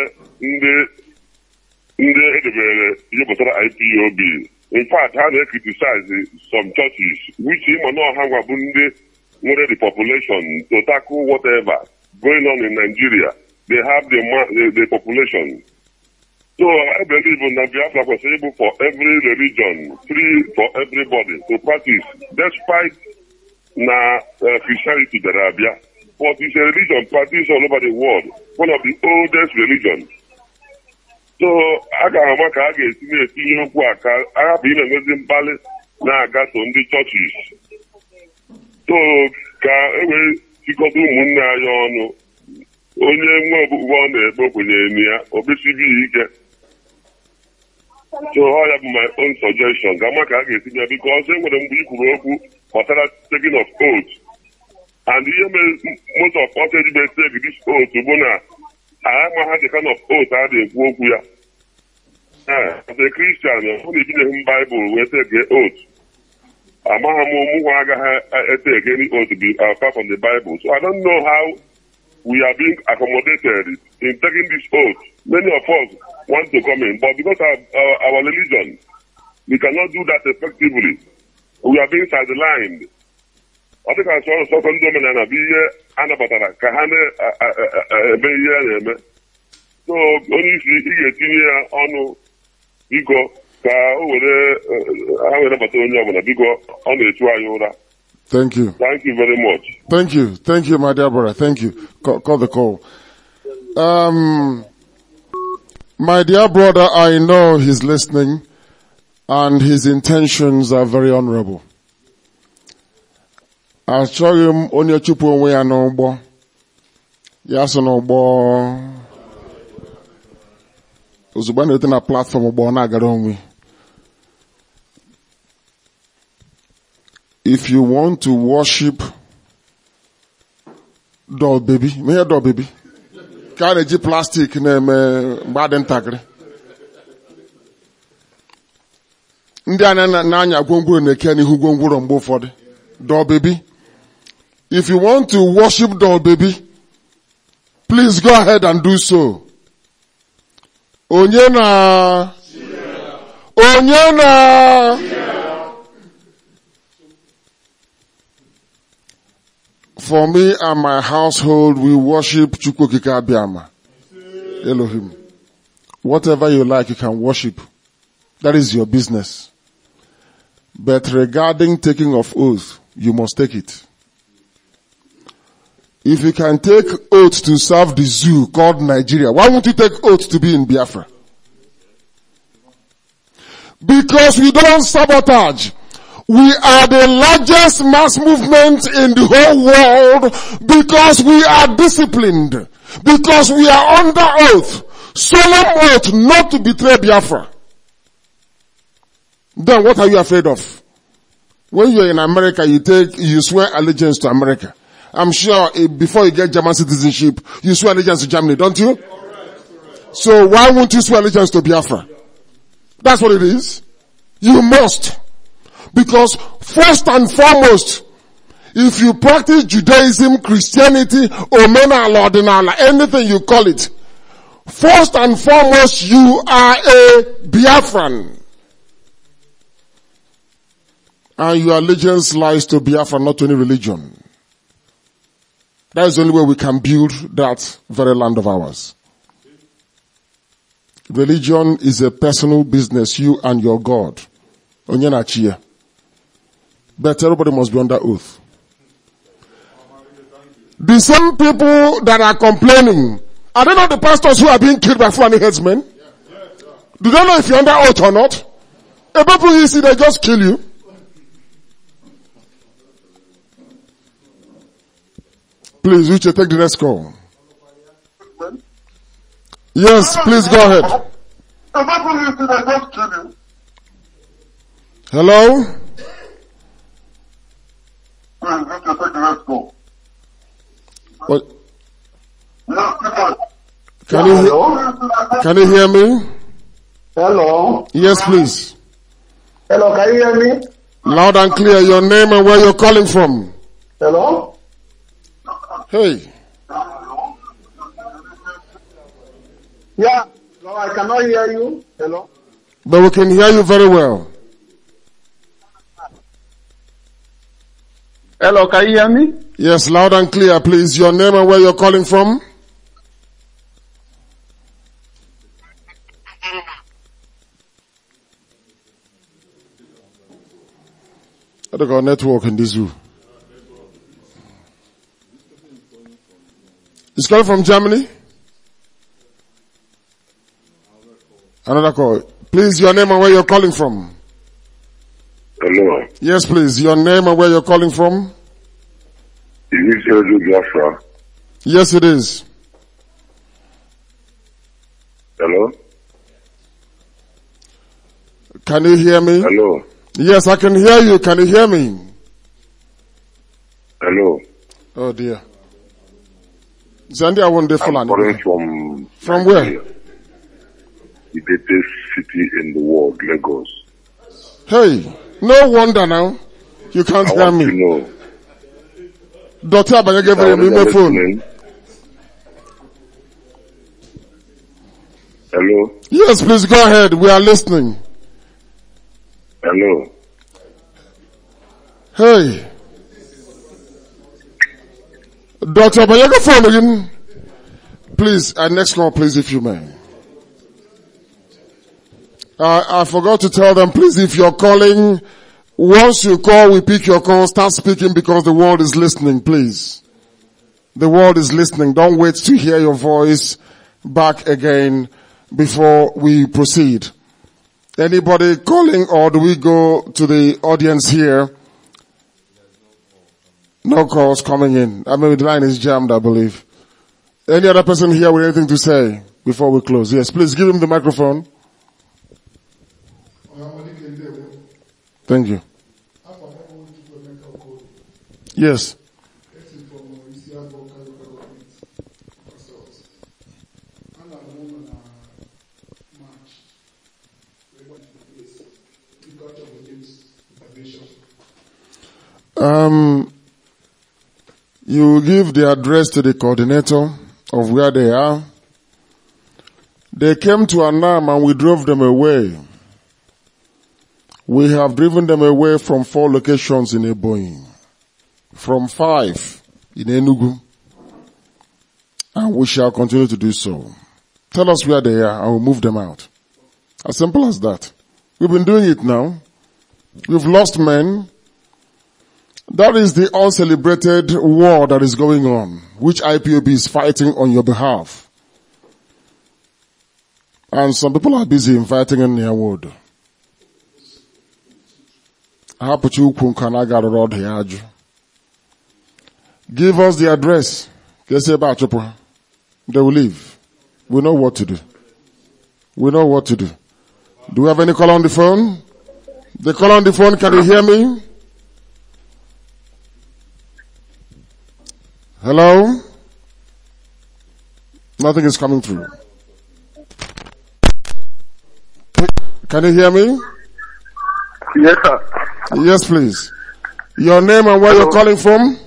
ndị edebere ihe pụtara ipob in fact ha na criticize some churches which ịma na how ngwa bụ ndị nwere the population to tackle whatever going on in Nigeria they have the, the population so I believe na Biafra kwesịrị ịbụ for every religion free for everybody to practice despite na uh, Christianity dara abịa but it's a religion practiced all over the world one of the oldest religions so a ga ama ka a ga-esi na-etinye okwu a ka a hapụ na mkpali na-agaso ndị chọchis so ka e wee chịkọta ụmụnne anyị ọnụ onye nwe ọbụbọ ọ na-ekpe kwenyere na ya obesibi ike so ya bụ my own suggestion ga ama ka a ga ya biko ọsọ e nwere mgbe i okwu gbasara taking of oath and ihe mere most of us ejibe take this oath bụ na agha ha dị kan of otu a na-ekwu okwu ya ee kristian na ebinyeghị m baịbụl wee tege ot. amaghị m ụmụnwa agaghị etege otu uh, apart from the bible so i don't know how we are being accommodated in taking this oath many of us want to come in but because of our, uh, our religion we cannot do that effectively we are being sidelined ọ dịka sọrọ sọtọ omenala bụ ihe anabatara ka ha na-eme ihe a na-eme so ị ga-etinye ya ọnụ biko ka o were eh, ha were onye ọbụla biko ọ anyị ụra Thank you. Thank you very much. Thank you. Thank you, my dear brother. Thank you. Call, call the call. Um, my dear brother, I know he's listening and his intentions are very honorable. achọghị m onye chụpụ onwe ya n'ụgbọ ya so n'ụgbọ ozugbo na-ete na platfọm ụgbọ na-agara onwe if you want to worship doll baby mehe doll baby ka a na-eji plastik na-eme mgbe adị ntakịrị ndị anya na-anya gwongworo na-eke n'ihu gwongworo mgbe ụfọdụ doll baby If you want to worship doll baby, please go ahead and do so. Onyena, Onyena. For me and my household, we worship Chukwokika Abiyama. Elohim. Whatever you like, you can worship. That is your business. But regarding taking of oath, you must take it. If you can take oath to serve the zoo called Nigeria, why won't you take oath to be in Biafra? Because we don't sabotage. We are the largest mass movement in the whole world because we are disciplined. Because we are under oath. Solemn oath not to betray Biafra. Then what are you afraid of? When you're in America, you take, you swear allegiance to America. I'm sure before you get German citizenship, you swear allegiance to Germany, don't you? So why won't you swear allegiance to Biafra? That's what it is. You must. Because first and foremost, if you practice Judaism, Christianity, Omena, Lordinala, anything you call it, first and foremost, you are a Biafran. And your allegiance lies to Biafra, not to any religion. That is the only way we can build that very land of ours. Religion is a personal business, you and your God. But everybody must be under oath. The same people that are complaining, are they not the pastors who are being killed by Fulani headsmen? Do they know if you're under oath or not? A people you see, they just kill you. Please, you take the next call. Yes, please go ahead. Hello? What? Can you, he- can you hear me? Hello? Yes, please. Hello, can you hear me? Loud and clear, your name and where you're calling from. Hello? Hey. Yeah, no, I cannot hear you. Hello? But we can hear you very well. Hello, can you hear me? Yes, loud and clear, please. Your name and where you're calling from? I don't got network in this room. He's calling from Germany. Another call. Please, your name and where you're calling from. Hello. Yes, please. Your name and where you're calling from. Is this Edo Yes, it is. Hello. Can you hear me? Hello. Yes, I can hear you. Can you hear me? Hello. Oh dear. Zandia Wonde Fulani. I'm from From where? The biggest city in the world, Lagos. Hey, no wonder now. You can't hear me. Know. Dr. Abanyege give me my phone. Hello? Yes, please go ahead. We are listening. Hello? Hey. Dr. Bayaka phone again. Please, our next call, please, if you may. Uh, I forgot to tell them, please, if you're calling, once you call, we pick your call, start speaking because the world is listening, please. The world is listening. Don't wait to hear your voice back again before we proceed. Anybody calling or do we go to the audience here? No calls coming in. I mean, the line is jammed, I believe. Any other person here with anything to say before we close? Yes, please give him the microphone. Thank you. Yes. Um, you give the address to the coordinator of where they are. They came to Anam and we drove them away. We have driven them away from four locations in Ebonyi, from five in Enugu, and we shall continue to do so. Tell us where they are and we'll move them out. As simple as that. We've been doing it now. We've lost men. That is the uncelebrated war that is going on, which IPOB is fighting on your behalf. And some people are busy inviting in their word. Give us the address. They will leave. We know what to do. We know what to do. Do we have any call on the phone? The call on the phone, can you hear me? Hello? Nothing is coming through. Can you hear me? Yes, sir. Yes, please. Your name and where Hello. you're calling from?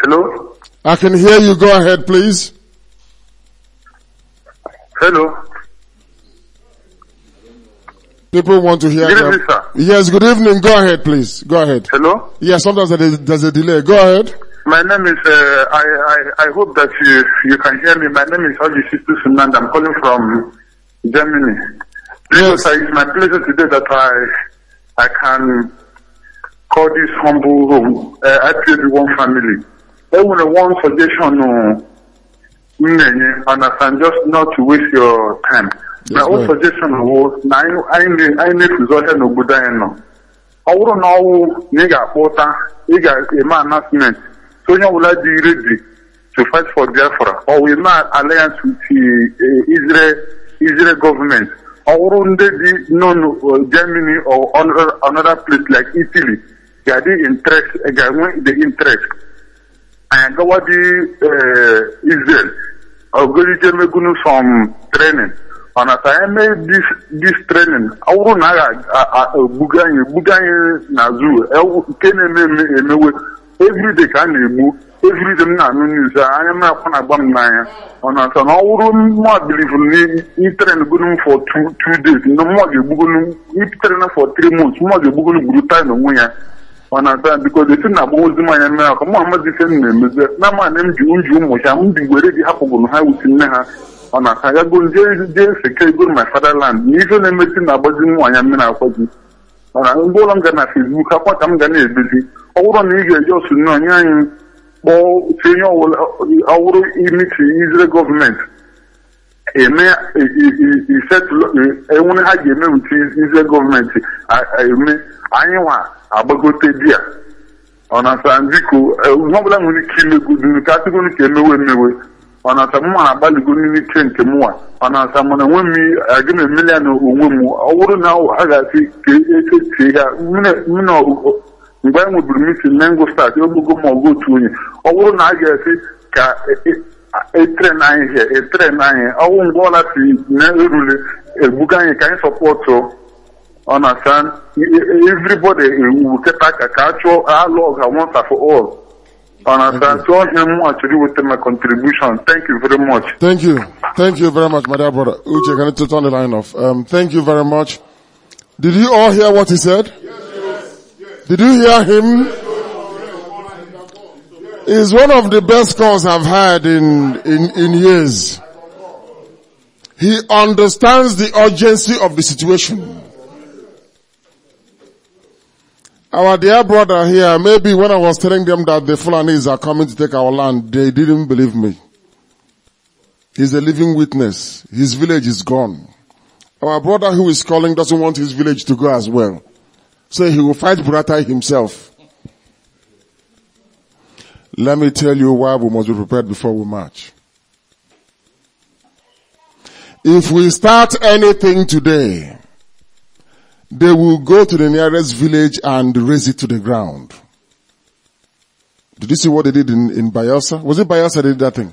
Hello? I can hear you. Go ahead, please. Hello? People want to hear. Good them. evening, sir. Yes, good evening. Go ahead, please. Go ahead. Hello. Yes, sometimes there's a, there's a delay. Go ahead. My name is. Uh, I, I I hope that you you can hear me. My name is Haji Situ Sunand. I'm calling from Germany. Yes. Sir, it's my pleasure today that I I can call this humble room. Uh, I pray the one family. Only one suggestion, uh, and I can just not to waste your time. na o suggestion wo na anyị anyị na-efuzi ọhịa n'obodo anyị nọ ọ bụrụ na ọwụ na ị ga-akpọ ụta ị ga-eme announcement so onye ọbụla dị ready to fight for Biafra ọ wụ na alliance with eh, Israel Israel government ọ bụrụ ndị dị non eh, Germany or another place like Italy ga-adị interest ga-enwe the interest anyị gawa dị Israel ogolije megunu some training mana e, e e, ka anyị mee dis trenin ọ na a ga-egbuga anyị egbuga anyị na zoo nke na-eme emewe everyday ka a na-egbu everyday m na-anụ n'izu anya m akwa na-agba m n'anya ọ na-asa na ọ bụrụ mma bilivu n'itren gonu for two days na mma ga-egbugonu itren for three months mma ga-egbugonu gburu taịn onwe ya ọ na-asa bikod esi na agbawozi ozi mmanya mere aka mma amazi ife m na-emezi na ama m ji nju ụmụcha m ji were gị hapụgụrụ ha wusi nne ha ọ na-akagago nje iri jee seke go my fatherland na ife na-emesi na-agbazi nwaanyị mmiri akwọ gị mana ndị ụlọ m ga na Facebook akwa ka m ga na-edozi ọ bụrụ na ị ga-eji ọsụ onye anyị kpọọ otu onye ọwụrụ imiti Israel gọọmenti eme e, enwere ha ga-eme uche Israel gọọmenti eme anyị nwa agbagote di ọ na-asa biko e, ihe ọbụla nwere ike imegodu ka atụgoro e ka emewe emewe ọ na-asa mụnwa agbalịgo n'ime iche nke mụnwa ọ na-asa na onwe m aga m emele ya na onwe m ọ bụrụ na ha e ga-asị ka echechie ya mgbe anyị nweburu m na ngụ start ogbogo ma ọgụ otu onye ọ bụrụ na a ga-asị ka na anyị hie na anyị ọwụ mgbe ọla si na-erule ebuga anyị ka anyị sọpọtụ ọ na-asa everybody ewu kịta ka ka a chụọ alụ ọga once for all and I thank you. him actually with my contribution. Thank you very much. Thank you. Thank you very much, my dear brother. Uche, can you turn the line off? Um, thank you very much. Did you all hear what he said? Yes, yes. Did you hear him? Is one of the best calls I've had in, in, in years. He understands the urgency of the situation. Our dear brother here, maybe when I was telling them that the Fulanis are coming to take our land, they didn't believe me. He's a living witness. His village is gone. Our brother who is calling doesn't want his village to go as well. So he will fight Buratai himself. Let me tell you why we must be prepared before we march. If we start anything today, they will go to the nearest village and raise it to the ground. Did you see what they did in, in Bayelsa? Was it Bayelsa they did that thing?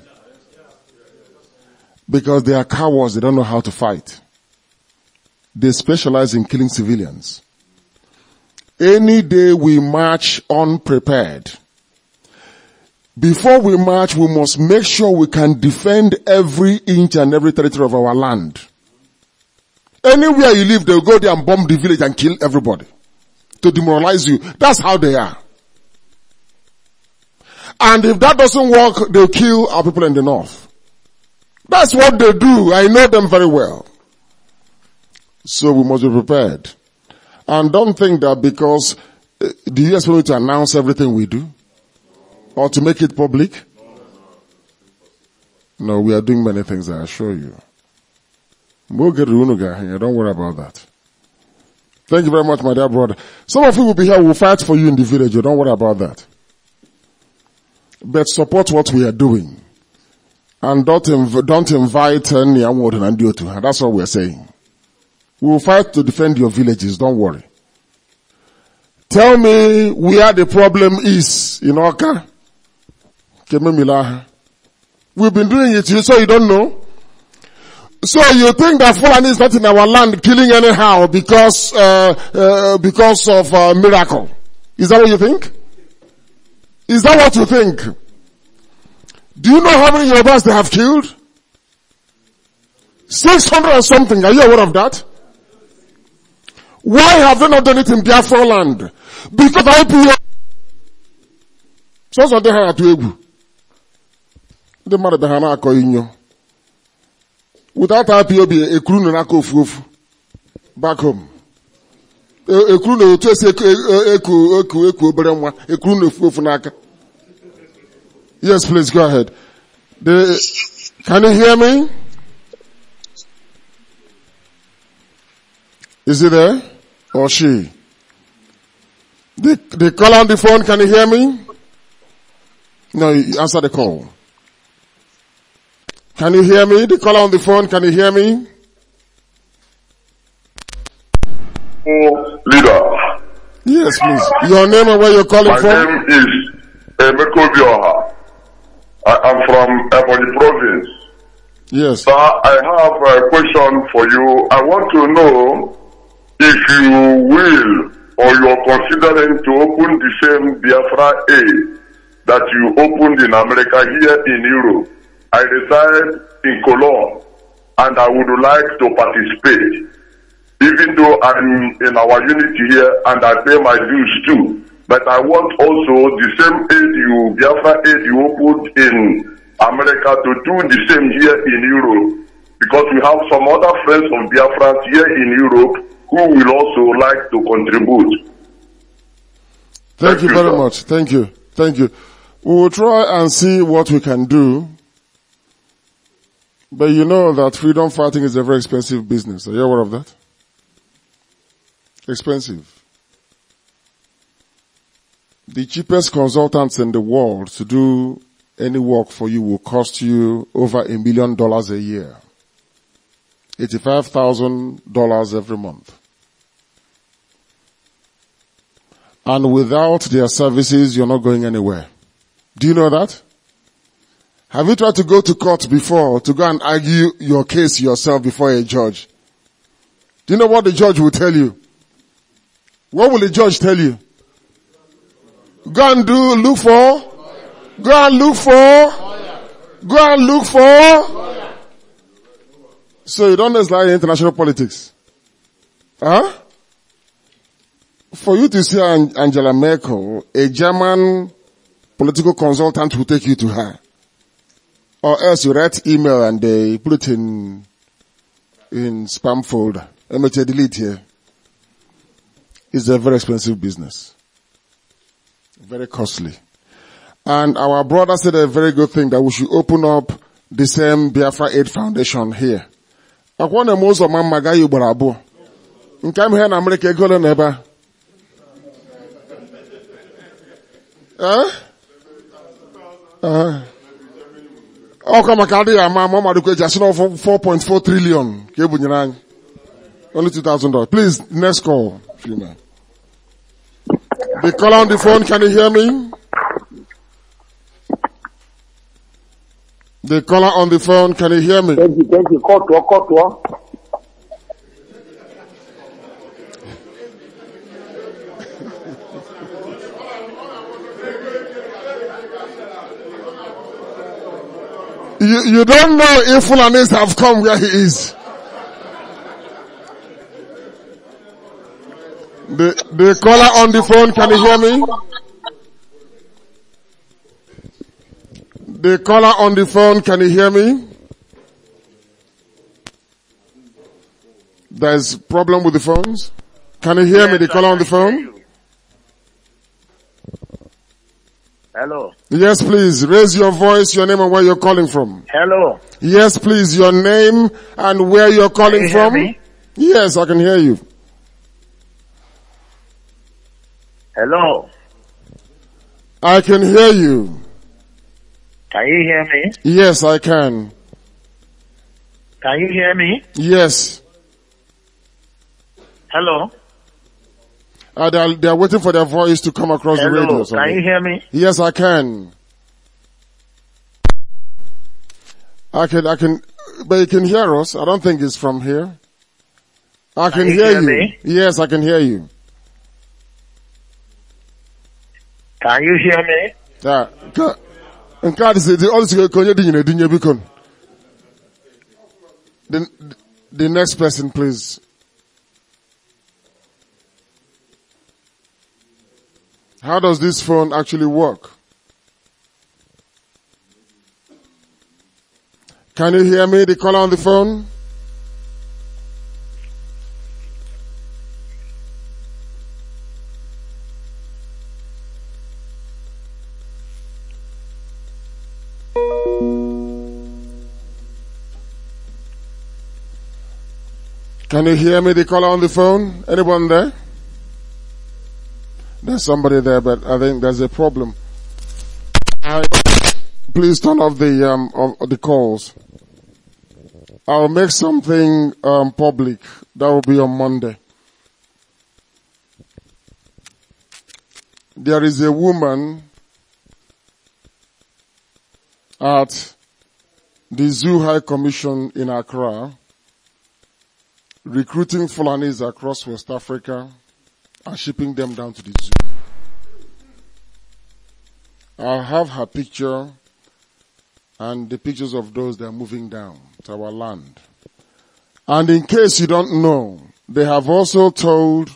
Because they are cowards, they don't know how to fight. They specialize in killing civilians. Any day we march unprepared. Before we march, we must make sure we can defend every inch and every territory of our land. Anywhere you live, they'll go there and bomb the village and kill everybody to demoralize you. That's how they are. And if that doesn't work, they'll kill our people in the north. That's what they do. I know them very well. So we must be prepared. And don't think that because eh, the US will to announce everything we do or to make it public. No, we are doing many things, I assure you. We'll get Runuga. Yeah, don't worry about that. Thank you very much, my dear brother. Some of you will be here. We'll fight for you in the village. Oh, don't worry about that. But support what we are doing. And don't, inv- don't invite any award and do to. That's what we're saying. We will fight to defend your villages. Don't worry. Tell me where the problem is in Oka. We've been doing it, so you don't know. So you think that Fulani is not in our land killing anyhow because, uh, uh, because of a uh, miracle. Is that what you think? Is that what you think? Do you know how many Yorubas they have killed? 600 or something. Are you aware of that? Why have they not done it in Biafra land? Because IPO... So, so they had to They married the Hanako Inyo. Without IPOB, a crew no nako fufu. Back home. A crew no chase a eku eku eku oberemwa. A crew no fufu naka. Yes, please go ahead. The, can you hear me? Is he there? Or she? The, the call on the phone, can you hear me? No, you answer the call. Can you hear me? The caller on the phone, can you hear me? Leader. Yes, please. Your name and where you're calling My from? My name is Emeko eh, Bioha. I am from Ebonyi province. Yes. Sir, I have a question for you. I want to know if you will or you are considering to open the same Biafra A that you opened in America here in Europe. I reside in Cologne and I would like to participate. Even though I'm in our unity here and I pay my dues too, but I want also the same aid you, Biafra aid you put in America to do the same here in Europe. Because we have some other friends of Biafra here in Europe who will also like to contribute. Thank, Thank you, you very sir. much. Thank you. Thank you. We will try and see what we can do but you know that freedom fighting is a very expensive business. Are you aware of that? Expensive. The cheapest consultants in the world to do any work for you will cost you over a million dollars a year. $85,000 every month. And without their services, you're not going anywhere. Do you know that? Have you tried to go to court before to go and argue your case yourself before a judge? Do you know what the judge will tell you? What will the judge tell you? Go and do, look for, go and look for, go and look for. So you don't understand international politics. Huh? For you to see Angela Merkel, a German political consultant will take you to her or else you write email and they put it in in spam folder. MHA delete here. It's a very expensive business. Very costly. And our brother said a very good thing that we should open up the same Biafra Aid Foundation here. I want mo most of mma gaa ugboro abụọ. Nke ahụ ihe na Amerịka ego ole na ebe ọkwa maka adịghị ama ma ọ madụkwa eji asị na 4.4 trillion ka e only 2000 dollars please next call Fina. the caller on the phone can you hear me the caller on the phone can you hear me thank you thank you you, you don't know if Fulanis have come where he is. The, the caller on the phone, can you hear me? The caller on the phone, can you hear me? There's problem with the phones. Can you hear yes, me? The caller on the phone? Hello. Yes, please. Raise your voice, your name and where you're calling from. Hello. Yes, please. Your name and where you're calling you from. Yes, I can hear you. Hello. I can hear you. Can you hear me? Yes, I can. Can you hear me? Yes. Hello. Uh, they, are, they are waiting for their voice to come across Hello, the radio. Can you hear me? Yes, I can. I can, I can, but you can hear us. I don't think it's from here. I can, can you hear, hear, you. Me? Yes, I can hear you. Can you hear me? Yeah. Uh, Nke a dị dị ọdụ sịrị ka onye dịnyere dịnye biko. The next person please. How does this phone actually work? Can you hear me, the caller on the phone? Can you hear me, the caller on the phone? Anyone there? There's somebody there, but I think there's a problem. I, please turn off the um, of the calls. I'll make something um, public. That will be on Monday. There is a woman at the Zoo High Commission in Accra recruiting Fulanis across West Africa and shipping them down to the zoo. I'll have her picture and the pictures of those that are moving down to our land. And in case you don't know, they have also told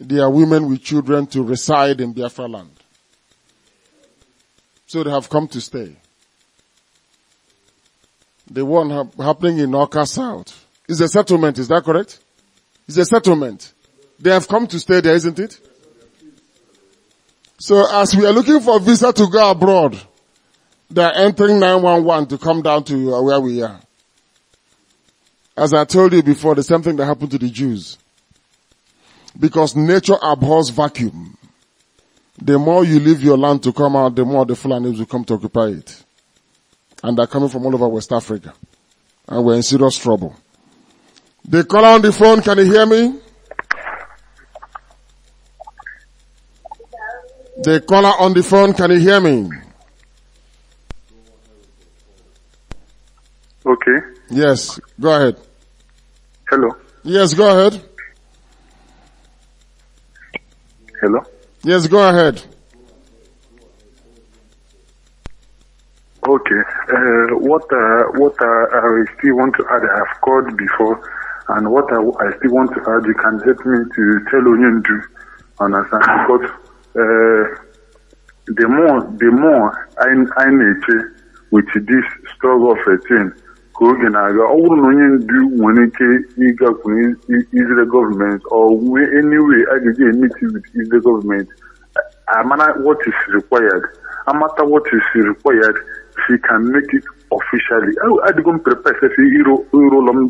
their women with children to reside in Biafra land. So they have come to stay. The one ha- happening in Oka South is a settlement, is that correct? It's a settlement. They have come to stay there, isn't it? So as we are looking for visa to go abroad, they are entering 911 to come down to where we are. As I told you before, the same thing that happened to the Jews. Because nature abhors vacuum. The more you leave your land to come out, the more the Fulanis will come to occupy it. And they're coming from all over West Africa. And we're in serious trouble. They call on the phone, can you hear me? The caller on the phone, can you hear me? Okay. Yes, go ahead. Hello. Yes, go ahead. Hello. Yes, go ahead. Okay. Uh, what uh, what uh, I still want to add, I've called before, and what I, I still want to add, you can help me to tell Onyendu, understand? Because Eh, the more the more anyị na-eche with this struggle of 13 ka oge na-aga ọ bụrụ na onye ndu nwere ike ịgakwunye Israel gọọmenti ọ nwee anyway a ga-eji with gọọmenti amara what is required amata what is required she can make it officially adịgo m prepare iro ụlọ m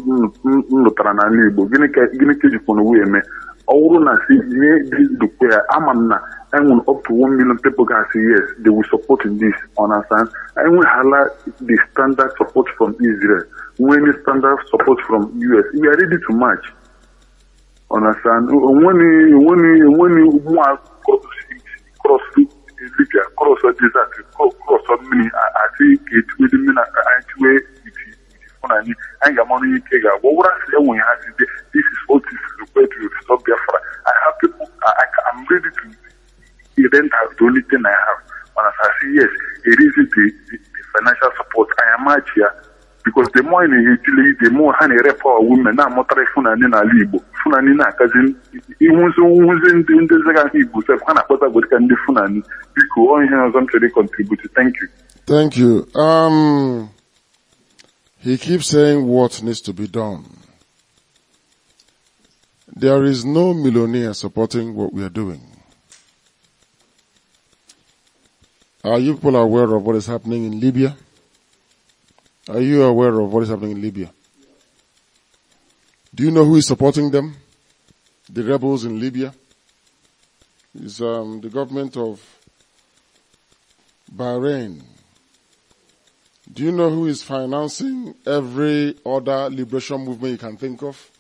nụtara n'ala Igbo gịnị ka ejikwana wee eme all na see this dukwere amamna enwun up to one million people can say yes they will support in this understand enwun hala the standard support from israel when the standard support from us we are ready to march understand when when when one cross libya cross desert cross mini àti ètò ìdímínà àti na anyị anyị ga-amanụ ike ga-agwa ọ bụrụ ha site this is what is required to stop Biafra I have people I, am ready to rent as the only thing I have mana I say yes it is the, the, the financial support I am out here because the more na-etile the more ha na-ere power women na-amụtara Fulani n'ala Igbo Fulani na-akazi iwuzi nwuzi ndị Igbo sef ha na akpata godika ndị Fulani biko ihe ọzọ m chere contribute He keeps saying what needs to be done. There is no millionaire supporting what we are doing. Are you people aware of what is happening in Libya? Are you aware of what is happening in Libya? Do you know who is supporting them? The rebels in Libya? Is um, the government of Bahrain, do you know who is financing every other liberation movement you can think of?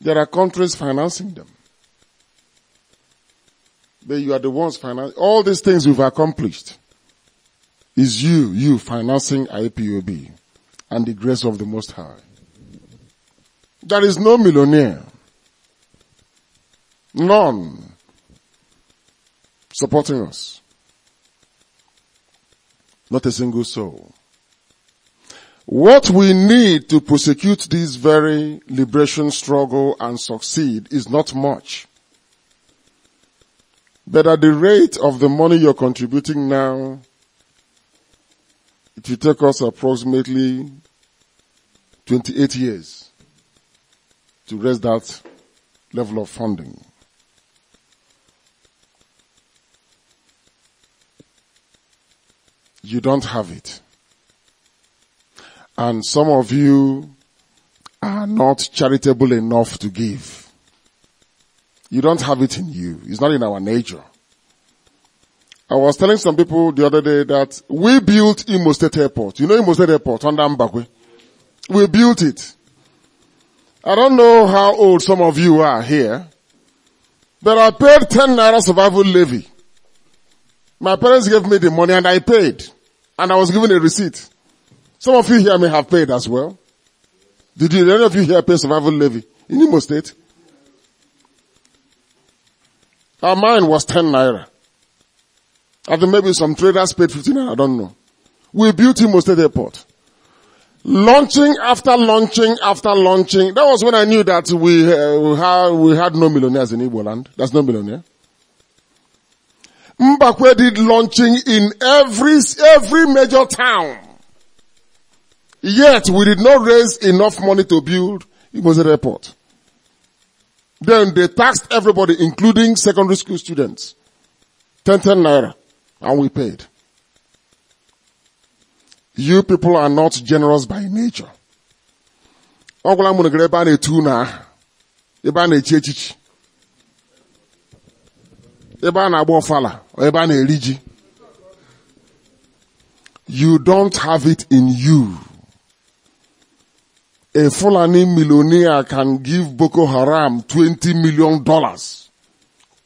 There are countries financing them. But you are the ones financing. All these things we've accomplished is you, you financing IPOB and the grace of the Most High. There is no millionaire. None supporting us. Not a single soul. What we need to prosecute this very liberation struggle and succeed is not much. But at the rate of the money you're contributing now, it will take us approximately 28 years to raise that level of funding. You don't have it. And some of you are not charitable enough to give. You don't have it in you. It's not in our nature. I was telling some people the other day that we built Imo State Airport. You know Imo State Airport on Dambakwe? We built it. I don't know how old some of you are here, but I paid 10 naira survival levy. My parents gave me the money and I paid. And I was given a receipt. Some of you here may have paid as well. Did, you, did any of you here pay survival levy in Imo State? Our mine was 10 naira. I think maybe some traders paid 15 naira, I don't know. We built Imo State Airport. Launching after launching after launching. That was when I knew that we, uh, we, had, we had no millionaires in Igbo land. That's no millionaire. Mbakwe did launching in every, every major town. Yet we did not raise enough money to build a Airport. Then they taxed everybody, including secondary school students. 10, 10 naira. And we paid. You people are not generous by nature. you don't have it in you a Fulani millionaire can give Boko Haram 20 million dollars.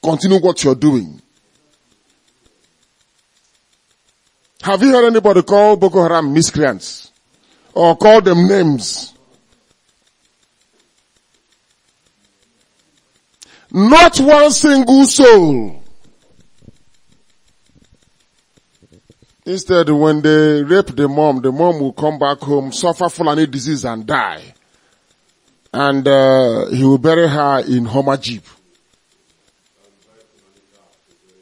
Continue what you're doing. Have you heard anybody call Boko Haram miscreants? Or call them names? Not one single soul. Instead, when they rape the mom, the mom will come back home, suffer Fulani disease and die. And uh, he will bury her in Homer Jeep.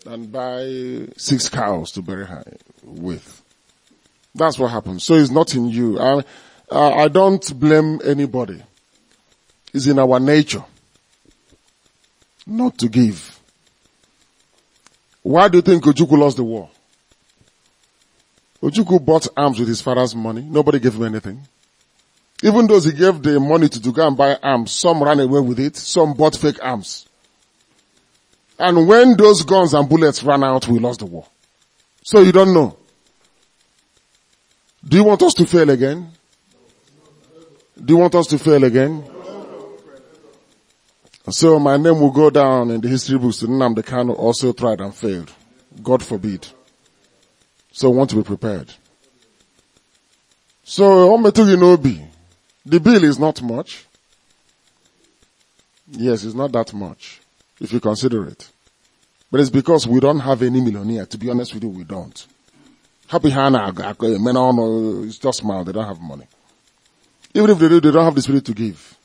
And buy six cows to bury her with. That's what happens. So it's not in you. I, I don't blame anybody. It's in our nature not to give. Why do you think Ojukwu lost the war? Ojuku bought arms with his father's money. Nobody gave him anything. Even those he gave the money to, to go and buy arms, some ran away with it, some bought fake arms. And when those guns and bullets ran out, we lost the war. So you don't know. Do you want us to fail again? Do you want us to fail again? So my name will go down in the history books. The Kanu also tried and failed. God forbid. So want to be prepared. So, know Nobi, the bill is not much. Yes, it's not that much, if you consider it. But it's because we don't have any millionaire. To be honest with you, we don't. Happy Hannah, men on, just smile, they don't have money. Even if they do, they don't have the spirit to give.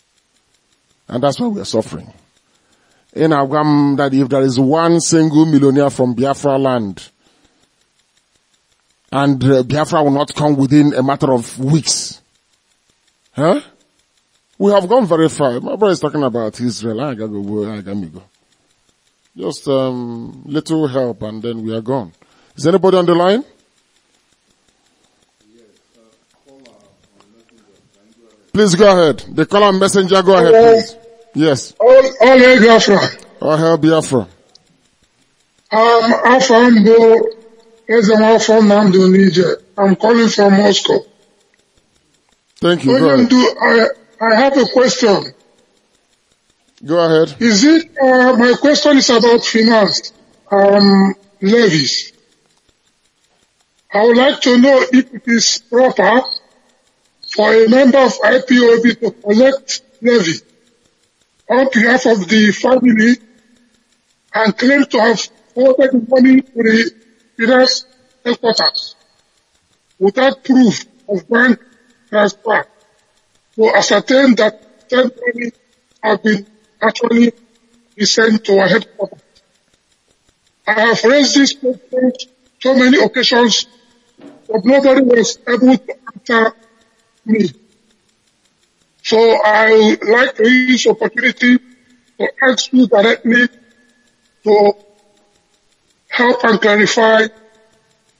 And that's why we are suffering. In Agam, that if there is one single millionaire from Biafra land and uh, Biafra will not come within a matter of weeks. Huh? We have gone very far. My brother is talking about Israel. I gotta go. I gotta go. Just um, little help, and then we are gone. Is anybody on the line? Please go ahead. The caller messenger, go ahead, please. Yes. All, all Biafra. All hail Biafra. Um, Afambo Ezema from Namdu, Niger. I'm calling from Moscow. Thank you. Onyendu, I, I have a question. Go ahead. Is it, uh, my question is about finance, um, levies. I would like to know if it is proper for a member of IPOB to collect levy on behalf of the family and claim to have forwarded money to the Fidesz headquarters without proof of bank transfer to ascertain that 10 million have been actually sent to our headquarters. I have raised this question so many occasions, but nobody was able to answer me. So I would like to use opportunity to ask you directly to help and clarify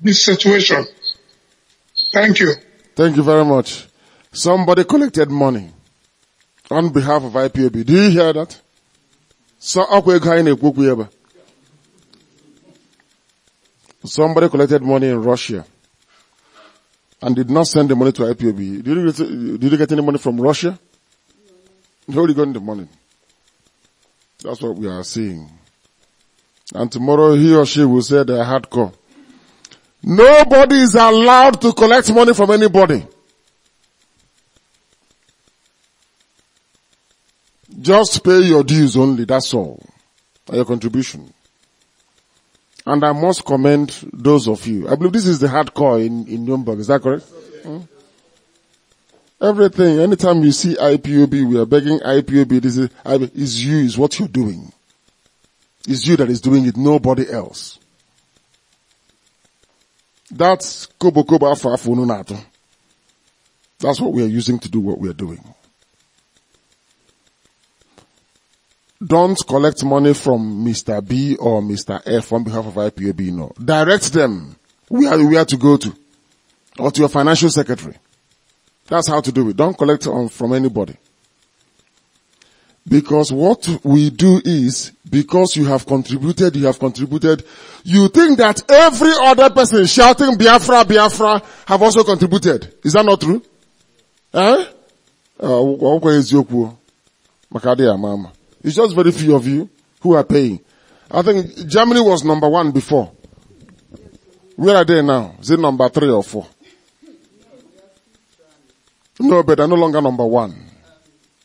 this situation. Thank you. Thank you very much. Somebody collected money on behalf of IPAB. Do you hear that? Somebody collected money in Russia and did not send the money to IPAB. Did you get, did you get any money from Russia? No, got the money. That's what we are seeing. And tomorrow he or she will say they're hardcore. Nobody is allowed to collect money from anybody. Just pay your dues only, that's all. Your contribution. And I must commend those of you. I believe this is the hardcore in, in Nuremberg, is that correct? Hmm? Everything, anytime you see IPOB, we are begging IPOB, this is, is you, is what you're doing. It's you that is doing it, nobody else. That's kobo kobo afafununato. That's what we are using to do what we are doing. Don't collect money from Mr. B or Mr. F on behalf of IPAB, no. Direct them where, are to go to or to your financial secretary. That's how to do it. Don't collect on, from anybody. Because what we do is, because you have contributed, you have contributed, you think that every other person shouting Biafra, Biafra have also contributed. Is that not true? Eh? Uh, it's just very few of you who are paying. I think Germany was number one before. Where are they now? Is it number three or four? No, but they're no longer number one.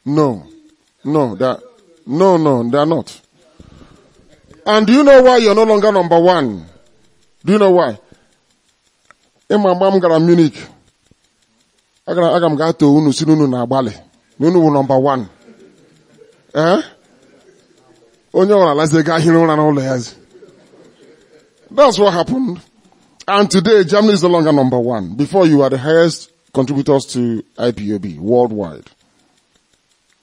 No. No, they are, no, no, they are not. And do you know why you're no longer number one? Do you know why? In my mom gara Munich. got, I got to unu si unu na bale. Unu wu number 1. Eh? Onye ora laze ga hin na ulo That's what happened. And today Germany is no longer number 1. Before you were the highest contributors to IPOB worldwide.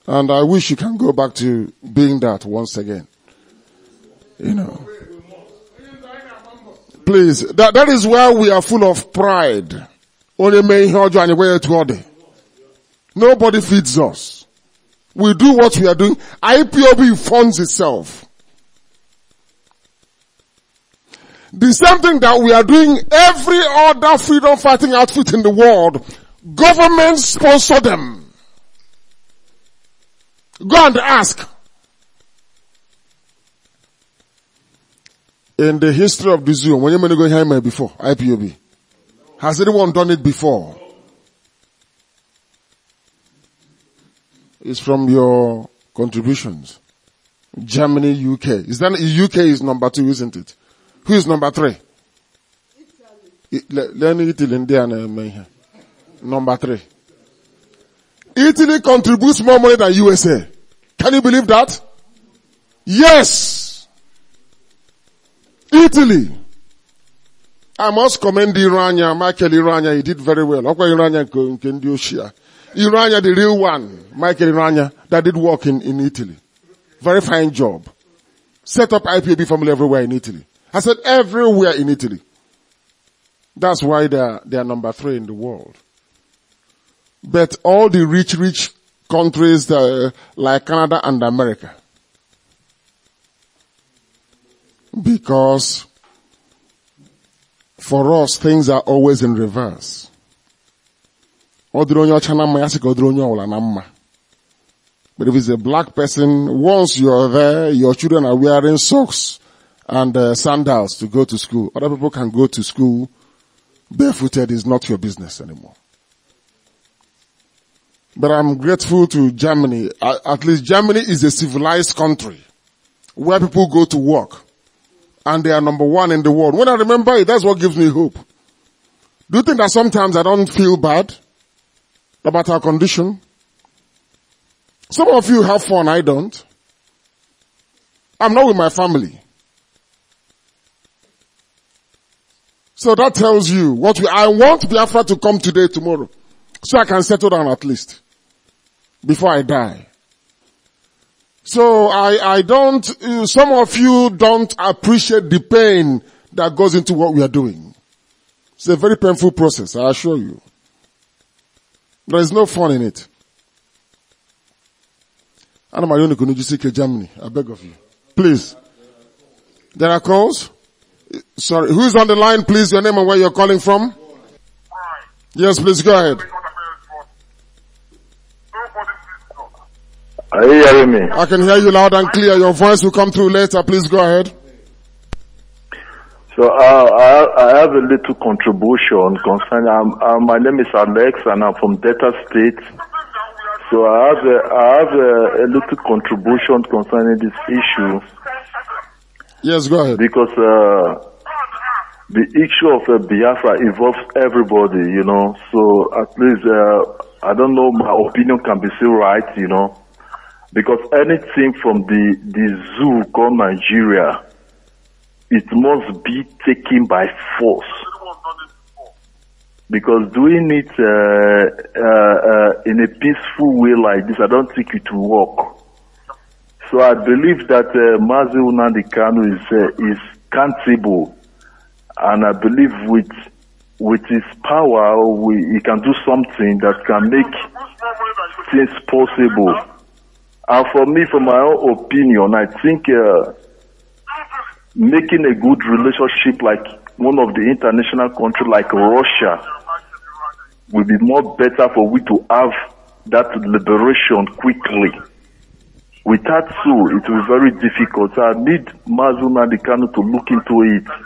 And I wish you can go back to being that once again. You know. Please, that, that is why we are full of pride. Only may hold you anywhere to order. Nobody feeds us. We do what we are doing. IPOB funds itself. The same thing that we are doing every other freedom fighting outfit in the world, government sponsor them. Go and ask. In the history of this room, when you go here before, IPOB, has anyone done it before? It's from your contributions. Germany, UK. Is that, UK is number two, isn't it? Who is number three? Italy. Italy, India, and Number three. Italy contributes more money than USA. Can you believe that? Yes. Italy. I must commend Irania, Michael Irania. He did very well. Okay, Irania can do share. Irania, the real one, Michael Irania, that did work in, in Italy. Very fine job. Set up IPAB family everywhere in Italy. I said everywhere in Italy. That's why they are, they are number three in the world. But all the rich, rich countries uh, like Canada and America. Because for us, things are always in reverse. But if it's a black person, once you're there, your children are wearing socks and uh, sandals to go to school. Other people can go to school barefooted is not your business anymore. But I'm grateful to Germany. At least Germany is a civilized country where people go to work and they are number one in the world. When I remember it, that's what gives me hope. Do you think that sometimes I don't feel bad about our condition? Some of you have fun, I don't. I'm not with my family. So that tells you what we, I want Biafra to come today, tomorrow, so I can settle down at least before I die. So I, I don't, uh, some of you don't appreciate the pain that goes into what we are doing. It's a very painful process, I assure you. There is no fun in it. Anna Marioni Kunujisike, Germany. I beg of you. Please. There are calls? Sorry. Who's on the line, please? Your name and where you're calling from? Yes, please go ahead. Are you hearing me? I can hear you loud and clear. Your voice will come through later. Please go ahead. So uh, I, have a little contribution concerning. Um, uh, my name is Alex, and I'm from Delta State. So I have a, I have a, a little contribution concerning this issue. Yes, go ahead. Because uh, the issue of uh, Biafra involves everybody, you know. So at least uh, I don't know. My opinion can be still right, you know. Because anything from the, the zoo called Nigeria, it must be taken by force. Because doing it uh, uh, uh, in a peaceful way like this, I don't think it will work. So I believe that uh, Mazi Unandi Kanu is, uh, is countable. And I believe with, with his power, we, he can do something that can make things possible. And uh, for me, for my own opinion, I think uh, making a good relationship like one of the international countries like Russia will be more better for we to have that liberation quickly. Without so, it will be very difficult. I need Mazuna Dikano to look into it.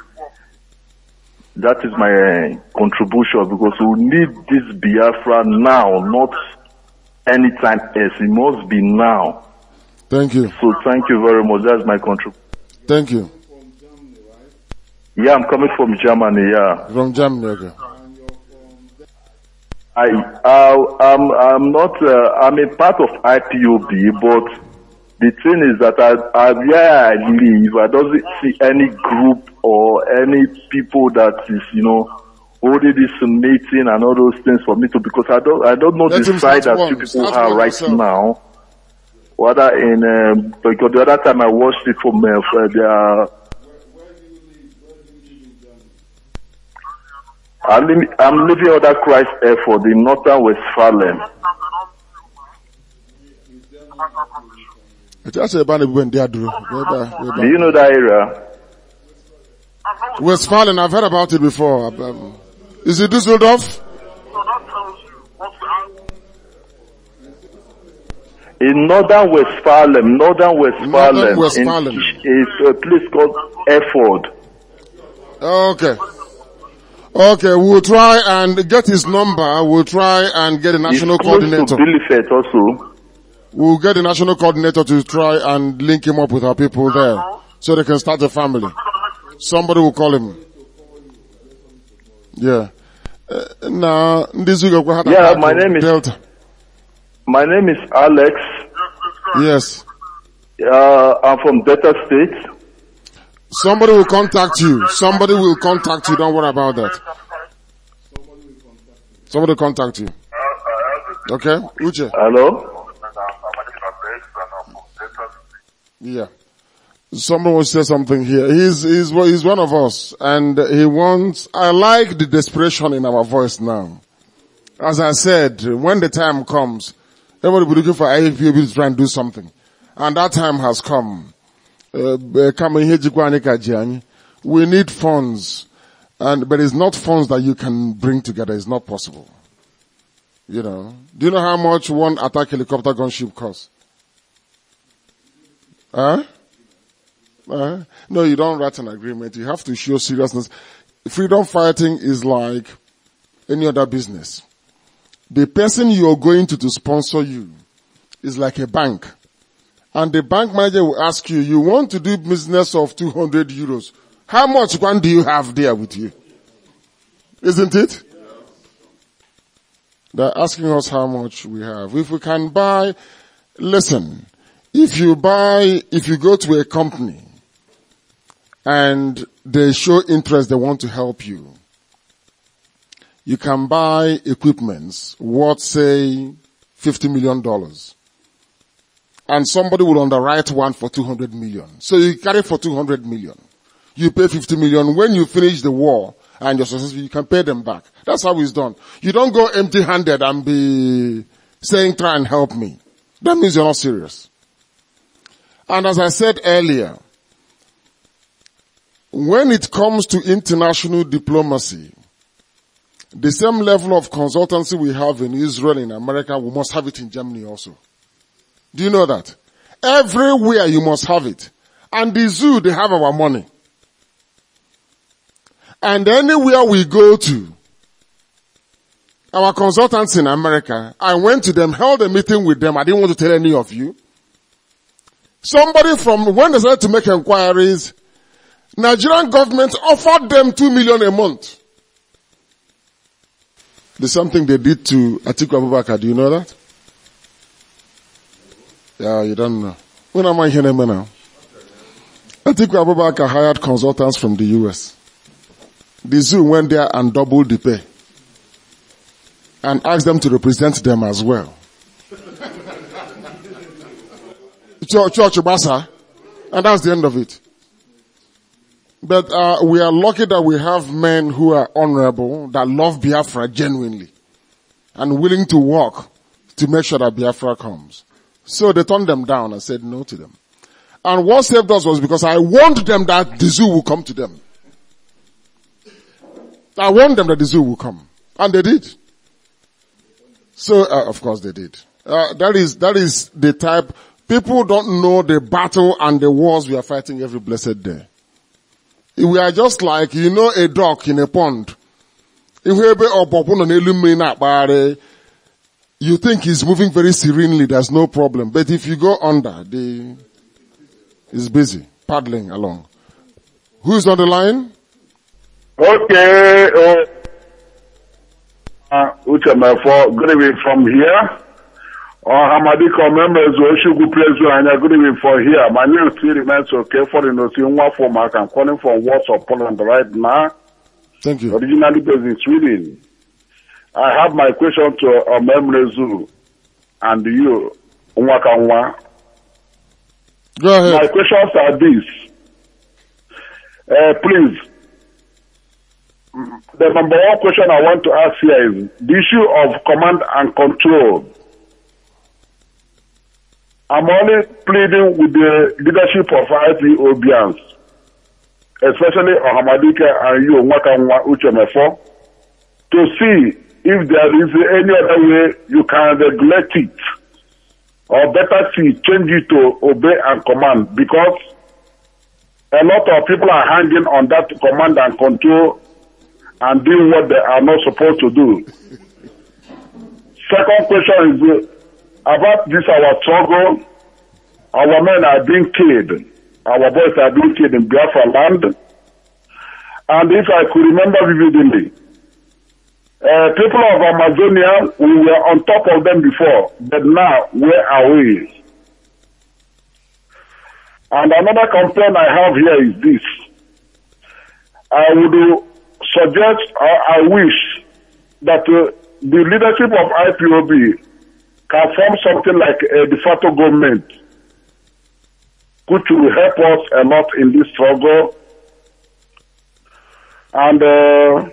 That is my uh, contribution because we need this Biafra now, not anytime else. It must be now. Thank you. So thank you very much. That's my country. Thank you. Yeah, I'm coming from Germany. Yeah. From Germany. Okay. I, uh, I'm, I'm not, uh, I'm a part of IPOB, but the thing is that I, I, where I live, I don't see any group or any people that is, you know, holding this meeting and all those things for me to because I don't I don't know Let the side that you people start are right yourself. now. Whether in um, because the other time I watched it from uh, their. Uh, I'm leaving, I'm leaving other Christ effort in northern Westphalen. Do you know that area? Westphalen, I've heard about it before. Um, is it Düsseldorf? in northern Westphalen, northern Westphalen, northern Westphalen. is a place called Efford. Okay. Okay, we'll try and get his number. We'll try and get a national it's close coordinator. To also. We'll get the national coordinator to try and link him up with our people there so they can start a family. Somebody will call him. Yeah. now, this week I've Yeah, my name is Delta. My name is Alex. Yes. Uh, I'm from Delta State. Somebody will contact you. Somebody will contact you. Don't worry about that. Somebody will contact you. Okay, Uche. Hello. Yeah. Someone will say something here. He's, he's, he's one of us and he wants, I like the desperation in our voice now. As I said, when the time comes, everybody will be looking for IFPB to try and do something. And that time has come. Uh, uh, we need funds. And, but it's not funds that you can bring together. It's not possible. You know, do you know how much one attack helicopter gunship costs? Huh? Uh, no, you don't write an agreement. You have to show seriousness. Freedom fighting is like any other business. The person you're going to to sponsor you is like a bank. And the bank manager will ask you, you want to do business of 200 euros. How much one do you have there with you? Isn't it? They're asking us how much we have. If we can buy, listen, if you buy, if you go to a company and they show interest, they want to help you. You can buy equipments worth say $50 million. And somebody will underwrite one for 200 million. So you carry for 200 million. You pay 50 million. When you finish the war and you're successful, you can pay them back. That's how it's done. You don't go empty handed and be saying, try and help me. That means you're not serious. And as I said earlier, when it comes to international diplomacy, the same level of consultancy we have in Israel, in America, we must have it in Germany also. Do you know that? Everywhere you must have it. And the zoo, they have our money. And anywhere we go to, our consultants in America, I went to them, held a meeting with them. I didn't want to tell any of you. Somebody from, when they started to make inquiries, Nigerian government offered them two million a month. There's something they did to Atiku Abubakar. Do you know that? Yeah, you don't know. When am I hearing now? Atiku Abubakar hired consultants from the US. The zoo went there and doubled the pay. And asked them to represent them as well. Church, Church And that's the end of it. But uh, we are lucky that we have men who are honorable, that love Biafra genuinely, and willing to work to make sure that Biafra comes. So they turned them down and said no to them. And what saved us was because I warned them that the zoo will come to them. I warned them that the zoo will come. And they did. So, uh, of course they did. Uh, that is, that is the type, people don't know the battle and the wars we are fighting every blessed day we are just like you know a duck in a pond. you think he's moving very serenely there's no problem but if you go under the is busy paddling along who's on the line okay uh, uh, good evening from here Ọhamadika Omemezu Oshugwu and Anya, good evening for here. My name still remains okay for the Nosi Nwafomak. I'm calling from Warsaw, Poland right now. Thank you. Originally based in Sweden. I have my question to Omemezu uh, and you, Nwakanwa. Go ahead. My questions are these. Uh, please, the number one question I want to ask here is the issue of command and control I'm only pleading with the leadership of IPOBians, especially Ohamadike and you, Mwakanwa Uchemefo, to see if there is any other way you can regulate it, or better see, change it to obey and command, because a lot of people are hanging on that command and control and doing what they are not supposed to do. Second question is, about this our struggle, our men are being killed. Our boys are being killed in Biafra land. And if I could remember vividly, uh, people of Amazonia, we were on top of them before, but now where are we? And another complaint I have here is this. I would suggest, I wish that uh, the leadership of IPOB can form something like a de facto government, which will help us a lot in this struggle. And uh,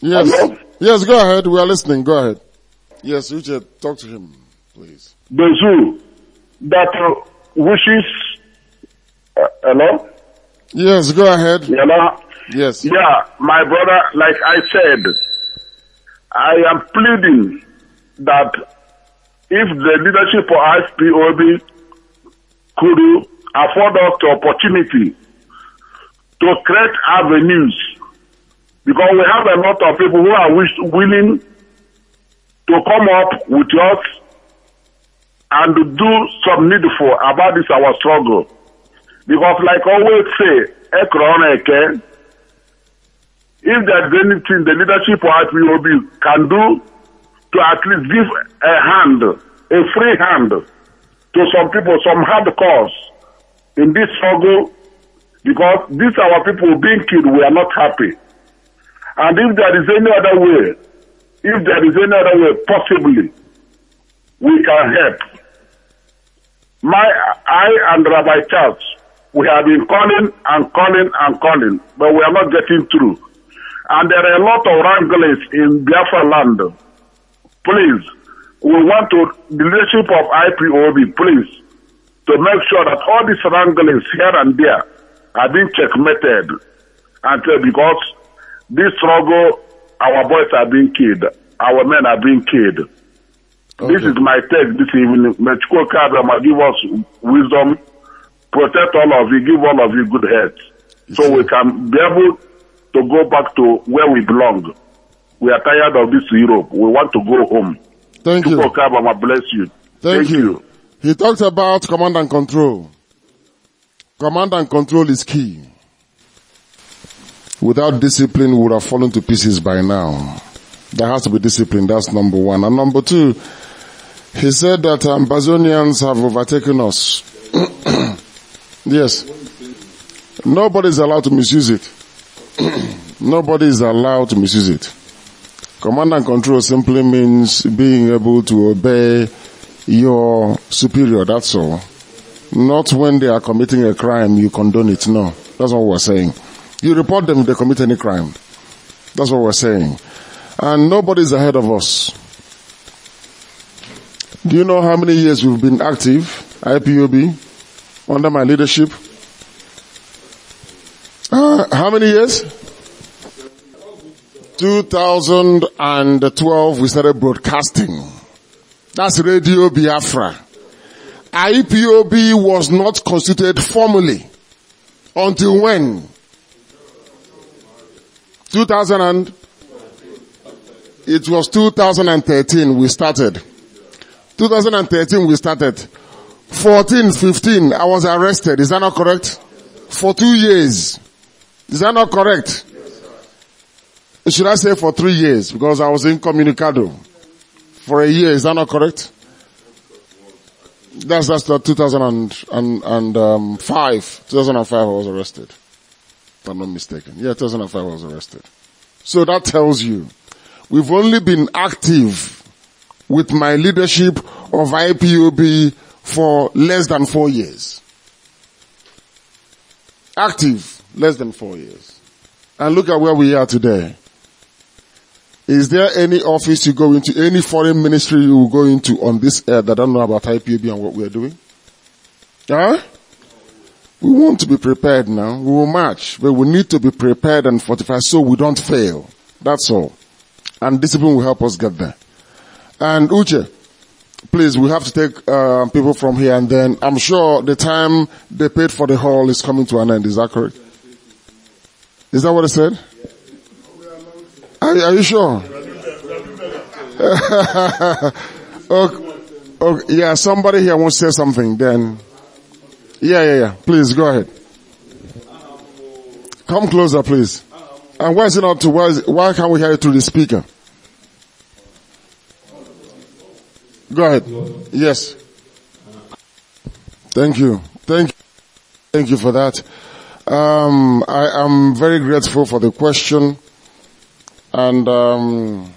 yes, yes, go ahead. We are listening. Go ahead. Yes, Richard, talk to him, please. The zoo that uh, wishes. Uh, hello. Yes, go ahead. Hello. Yes. Yeah, my brother. Like I said, I am pleading that if the leadership for ISPOB could afford us the opportunity to create avenues because we have a lot of people who are wish, willing to come up with us and to do some needful about this our struggle because like always say ekrona eke if there is anything the leadership of IPOB can do to at least give a hand, a free hand to some people, some hard cause in this struggle because these our people being killed, we are not happy. And if there is any other way, if there is any other way, possibly, we can help. My, I and Rabbi Charles, we have been calling and calling and calling, but we are not getting through. And there are a lot of wranglers in Biafra land please, we want to, the leadership of IPOB, please, to make sure that all these wranglings here and there are being checkmated until because this struggle, our boys are being killed, our men are being killed. Okay. This is my take this evening. May Chukwokabama give us wisdom, protect all of you, give all of you good health, so we can be able to go back to where we belong. We are tired of this Europe. We want to go home. Thank you. Obama bless you. Thank, Thank you. you. He talks about command and control. Command and control is key. Without discipline, we would have fallen to pieces by now. There has to be discipline. That's number one. And number two, he said that um, Bazonians have overtaken us. yes. Nobody is allowed to misuse it. Nobody is allowed to misuse it. Command and control simply means being able to obey your superior, that's all. Not when they are committing a crime, you condone it, no. That's what we're saying. You report them if they commit any crime. That's what we're saying. And nobody's ahead of us. Do you know how many years we've been active, IPOB, under my leadership? Uh, how many years? 2012, we started broadcasting. That's Radio Biafra. IPOB was not constituted formally until when? 2000 and it was 2013 we started. 2013 we started. 14, 15, I was arrested. Is that not correct? For two years. Is that not correct? should I say for three years? Because I was incommunicado for a year. Is that not correct? That's that's the 2005. Um, 2005 I was arrested. If I'm not mistaken. Yeah, 2005 I was arrested. So that tells you we've only been active with my leadership of IPOB for less than four years. Active, less than four years. And look at where we are today. Is there any office you go into, any foreign ministry you go into on this earth that don't know about IPB and what we're doing? Huh? We want to be prepared now. We will march, but we need to be prepared and fortified so we don't fail. That's all. And discipline will help us get there. And Uche, please, we have to take uh, people from here and then I'm sure the time they paid for the hall is coming to an end. Is that correct? Is that what I said? Are, are you sure? okay, okay. Yeah, somebody here wants to say something then. Yeah, yeah, yeah. Please go ahead. Come closer, please. And why is it not to, why, it, why can't we hear it through the speaker? Go ahead. Yes. Thank you. Thank you. Thank you for that. Um, I am very grateful for the question and um,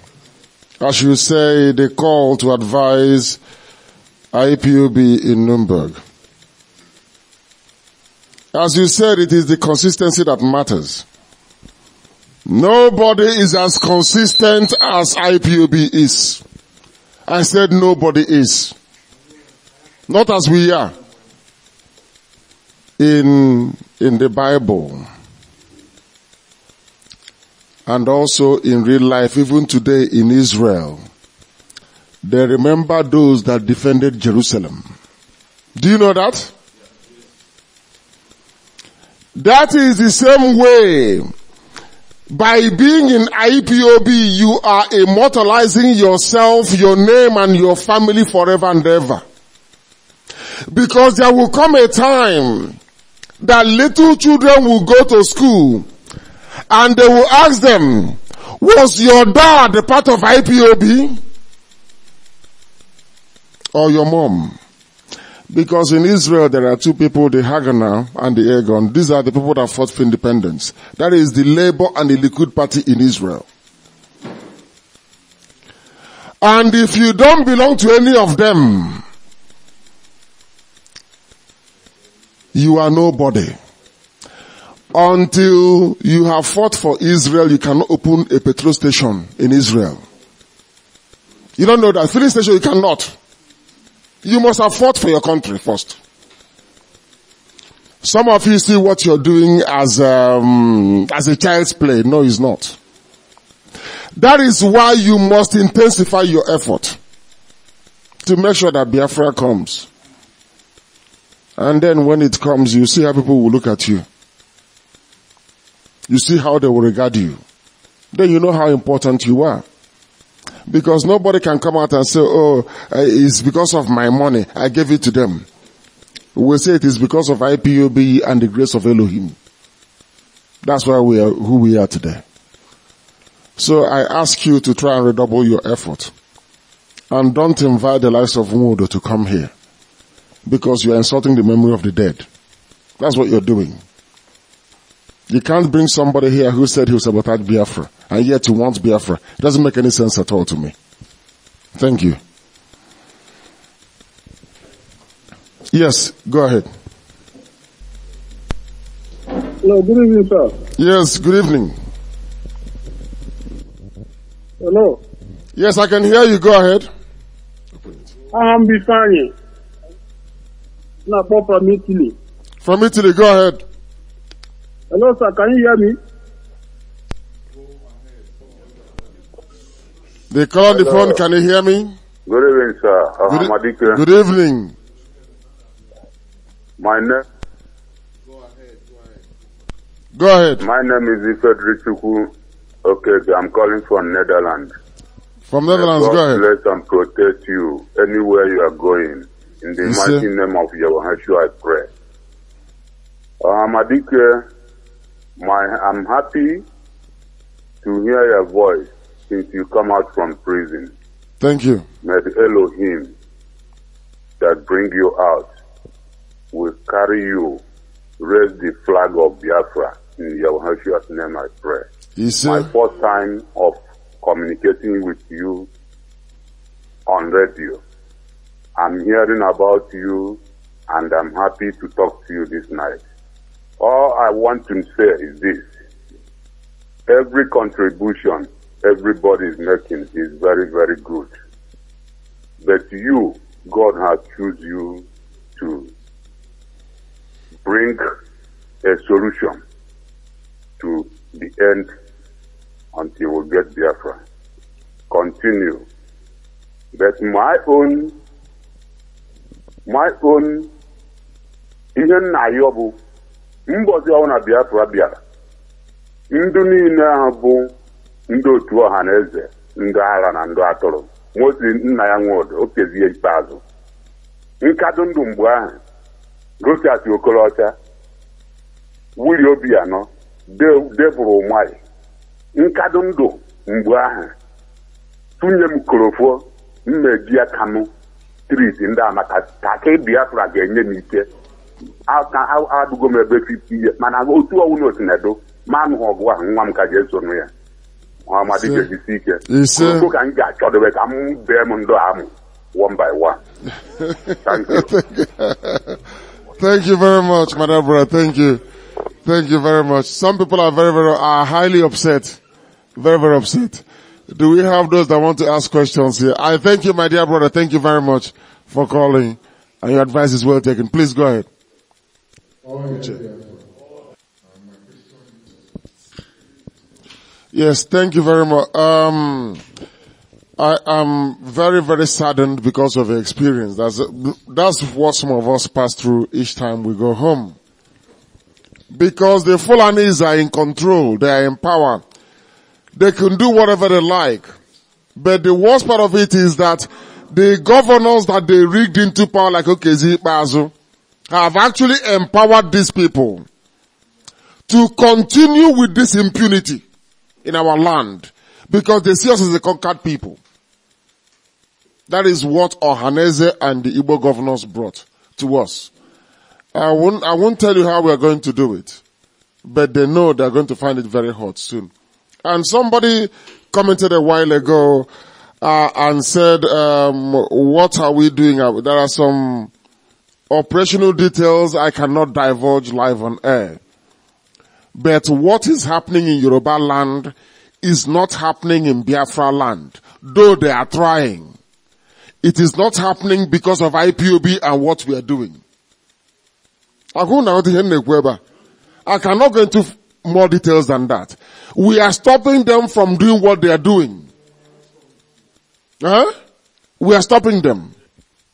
as you say, the call to advise IPUB in Nuremberg. As you said, it is the consistency that matters. Nobody is as consistent as IPUB is. I said nobody is. Not as we are in, in the Bible and also in real life, even today in Israel, they remember those that defended Jerusalem. Do you know that? That is the same way. By being in IPOB, you are immortalizing yourself, your name and your family forever and ever. Because there will come a time that little children will go to school and they will ask them, was your dad a part of IPOB? Or your mom? Because in Israel there are two people, the Haganah and the Egon. These are the people that fought for independence. That is the Labour and the Likud party in Israel. And if you don't belong to any of them, you are nobody. Until you have fought for Israel, you cannot open a petrol station in Israel. You don't know that filling station you cannot. You must have fought for your country first. Some of you see what you're doing as um, as a child's play. No, it's not. That is why you must intensify your effort to make sure that Biafra comes. And then when it comes, you see how people will look at you. You see how they will regard you. Then you know how important you are. Because nobody can come out and say, oh, eh, it's because of my money. I gave it to them. We say it is because of IPOB and the grace of Elohim. That's why we are who we are today. So I ask you to try and redouble your effort. And don't invite the likes of Mudo to come here. Because you are insulting the memory of the dead. That's what you're doing. You can't bring somebody here who said he was sabotage Biafra and yet he wants Biafra. It doesn't make any sense at all to me. Thank you. Yes, go ahead. Hello, good evening, sir. Yes, good evening. Hello. Yes, I can hear you. Go ahead. I'm Bifani. From Italy. From Italy, go ahead. Hello, sir. Can you hear me? They call on the phone. Can you hear me? Good evening, sir. Uh, good, e- good evening. My name. Go ahead. Go ahead. My name is Ifedri Okay, I'm calling from Netherlands. From Netherlands, God go ahead. Bless and protect you anywhere you are going. In the mighty name of Yahweh, I pray. Amadike, uh, my, I'm happy to hear your voice since you come out from prison. Thank you. May the Elohim that bring you out will carry you, raise the flag of Biafra in Yahushua's name I pray. Yes, My first time of communicating with you on radio. I'm hearing about you and I'm happy to talk to you this night. All I want to say is this. Every contribution everybody is making is very, very good. But you, God has chosen you to bring a solution to the end until we get Biafra. Continue. But my own, my own, even Nayobu, mbọzi ọwụ na biafra bịara ndụ niile ahụ bụ ndị otu ọha na eze ndụ agha na ndụ atụrụ mosi nna ya nwodo okezie ikpeazụ nkadụ ndụ mgbe ahụ gosiasi okorocha wili obi anọ debụrụ ụmari nkadụ ndụ mgbe ahụ tụnye m korofo mmejia ya tris ndị amaka taki biafra ga-enye m ike a ka adụgo m ebe fifti ihe mana otu ọnwụ otu na-edo ma anụghị ọgụ ahụ nwa m ka ga-esonụ ya ọmadijejisi ike ụtụ ka m ga-achọdobe ka m bee m ndụ amụ one by one thank you thank you very much my brother thank you thank you very much some people are very very are highly upset very very upset do we have those that want to ask questions here i thank you my dear brother thank you very much for calling and your advice is well taken please go ahead Yes, thank you very much. Um, I am very, very saddened because of the experience. That's, that's what some of us pass through each time we go home. Because the Fulanis are in control, they are in power. They can do whatever they like. But the worst part of it is that the governors that they rigged into power like okay, Bazu, have actually empowered these people to continue with this impunity in our land because they see us as a conquered people. That is what Ohaneze and the Igbo governors brought to us. I won't, I won't tell you how we are going to do it, but they know they're going to find it very hot soon. And somebody commented a while ago uh, and said, um, what are we doing? Uh, there are some Operational details I cannot divulge live on air. But what is happening in Yoruba land is not happening in Biafra land, though they are trying. It is not happening because of IPOB and what we are doing. I cannot go into more details than that. We are stopping them from doing what they are doing. Huh? We are stopping them.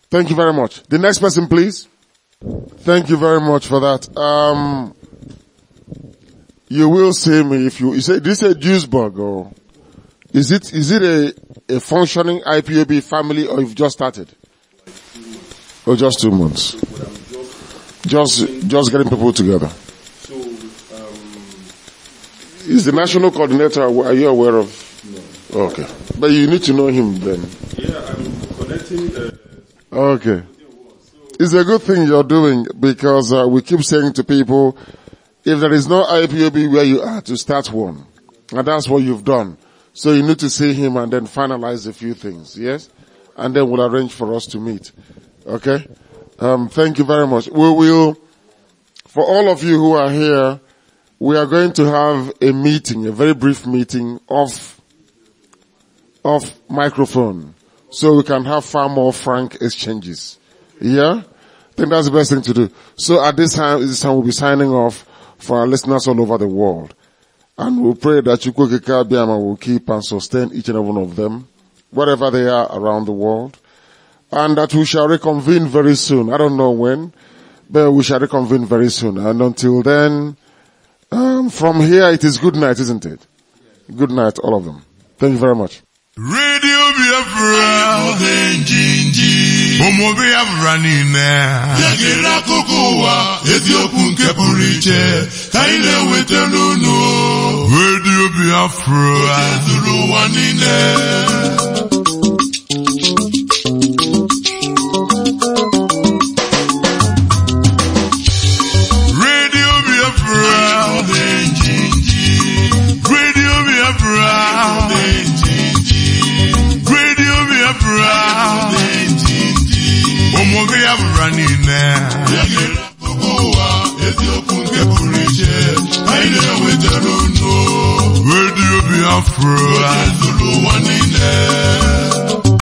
Thank you very much. The next person, please. Thank you very much for that. Um, you will see me if you, you say, this is a juice bug or oh. is it, is it a, a functioning IPOB family or you've just started? Or oh, just two months? Just, just getting people together. Is the national coordinator, are you aware of? No. Okay. But you need to know him then. Yeah, I'm connecting, uh Okay. It's a good thing you're doing because uh, we keep saying to people, if there is no IPOB where you are, to start one. And that's what you've done. So you need to see him and then finalize a few things, yes? And then we'll arrange for us to meet. Okay? Um, thank you very much. We will, for all of you who are here, we are going to have a meeting, a very brief meeting of, of microphone so we can have far more frank exchanges. Yeah? I think that's the best thing to do. So at this time, this time we'll be signing off for our listeners all over the world. And we'll pray that Chukwukika Biama will keep and sustain each and every one of them, wherever they are around the world. And that we shall reconvene very soon. I don't know when, but we shall reconvene very soon. And until then, um, from here it is good night, isn't it? Good night, all of them. Thank you very much. Radio ụmụobi ya bụra niile ya ga-ere akụkụ ụwa eziokwu nke pụrụ iche ka anyị na-enweta n'unu redio biafra zuru ụwa niile Biafra. Onye Zulu nwa niile.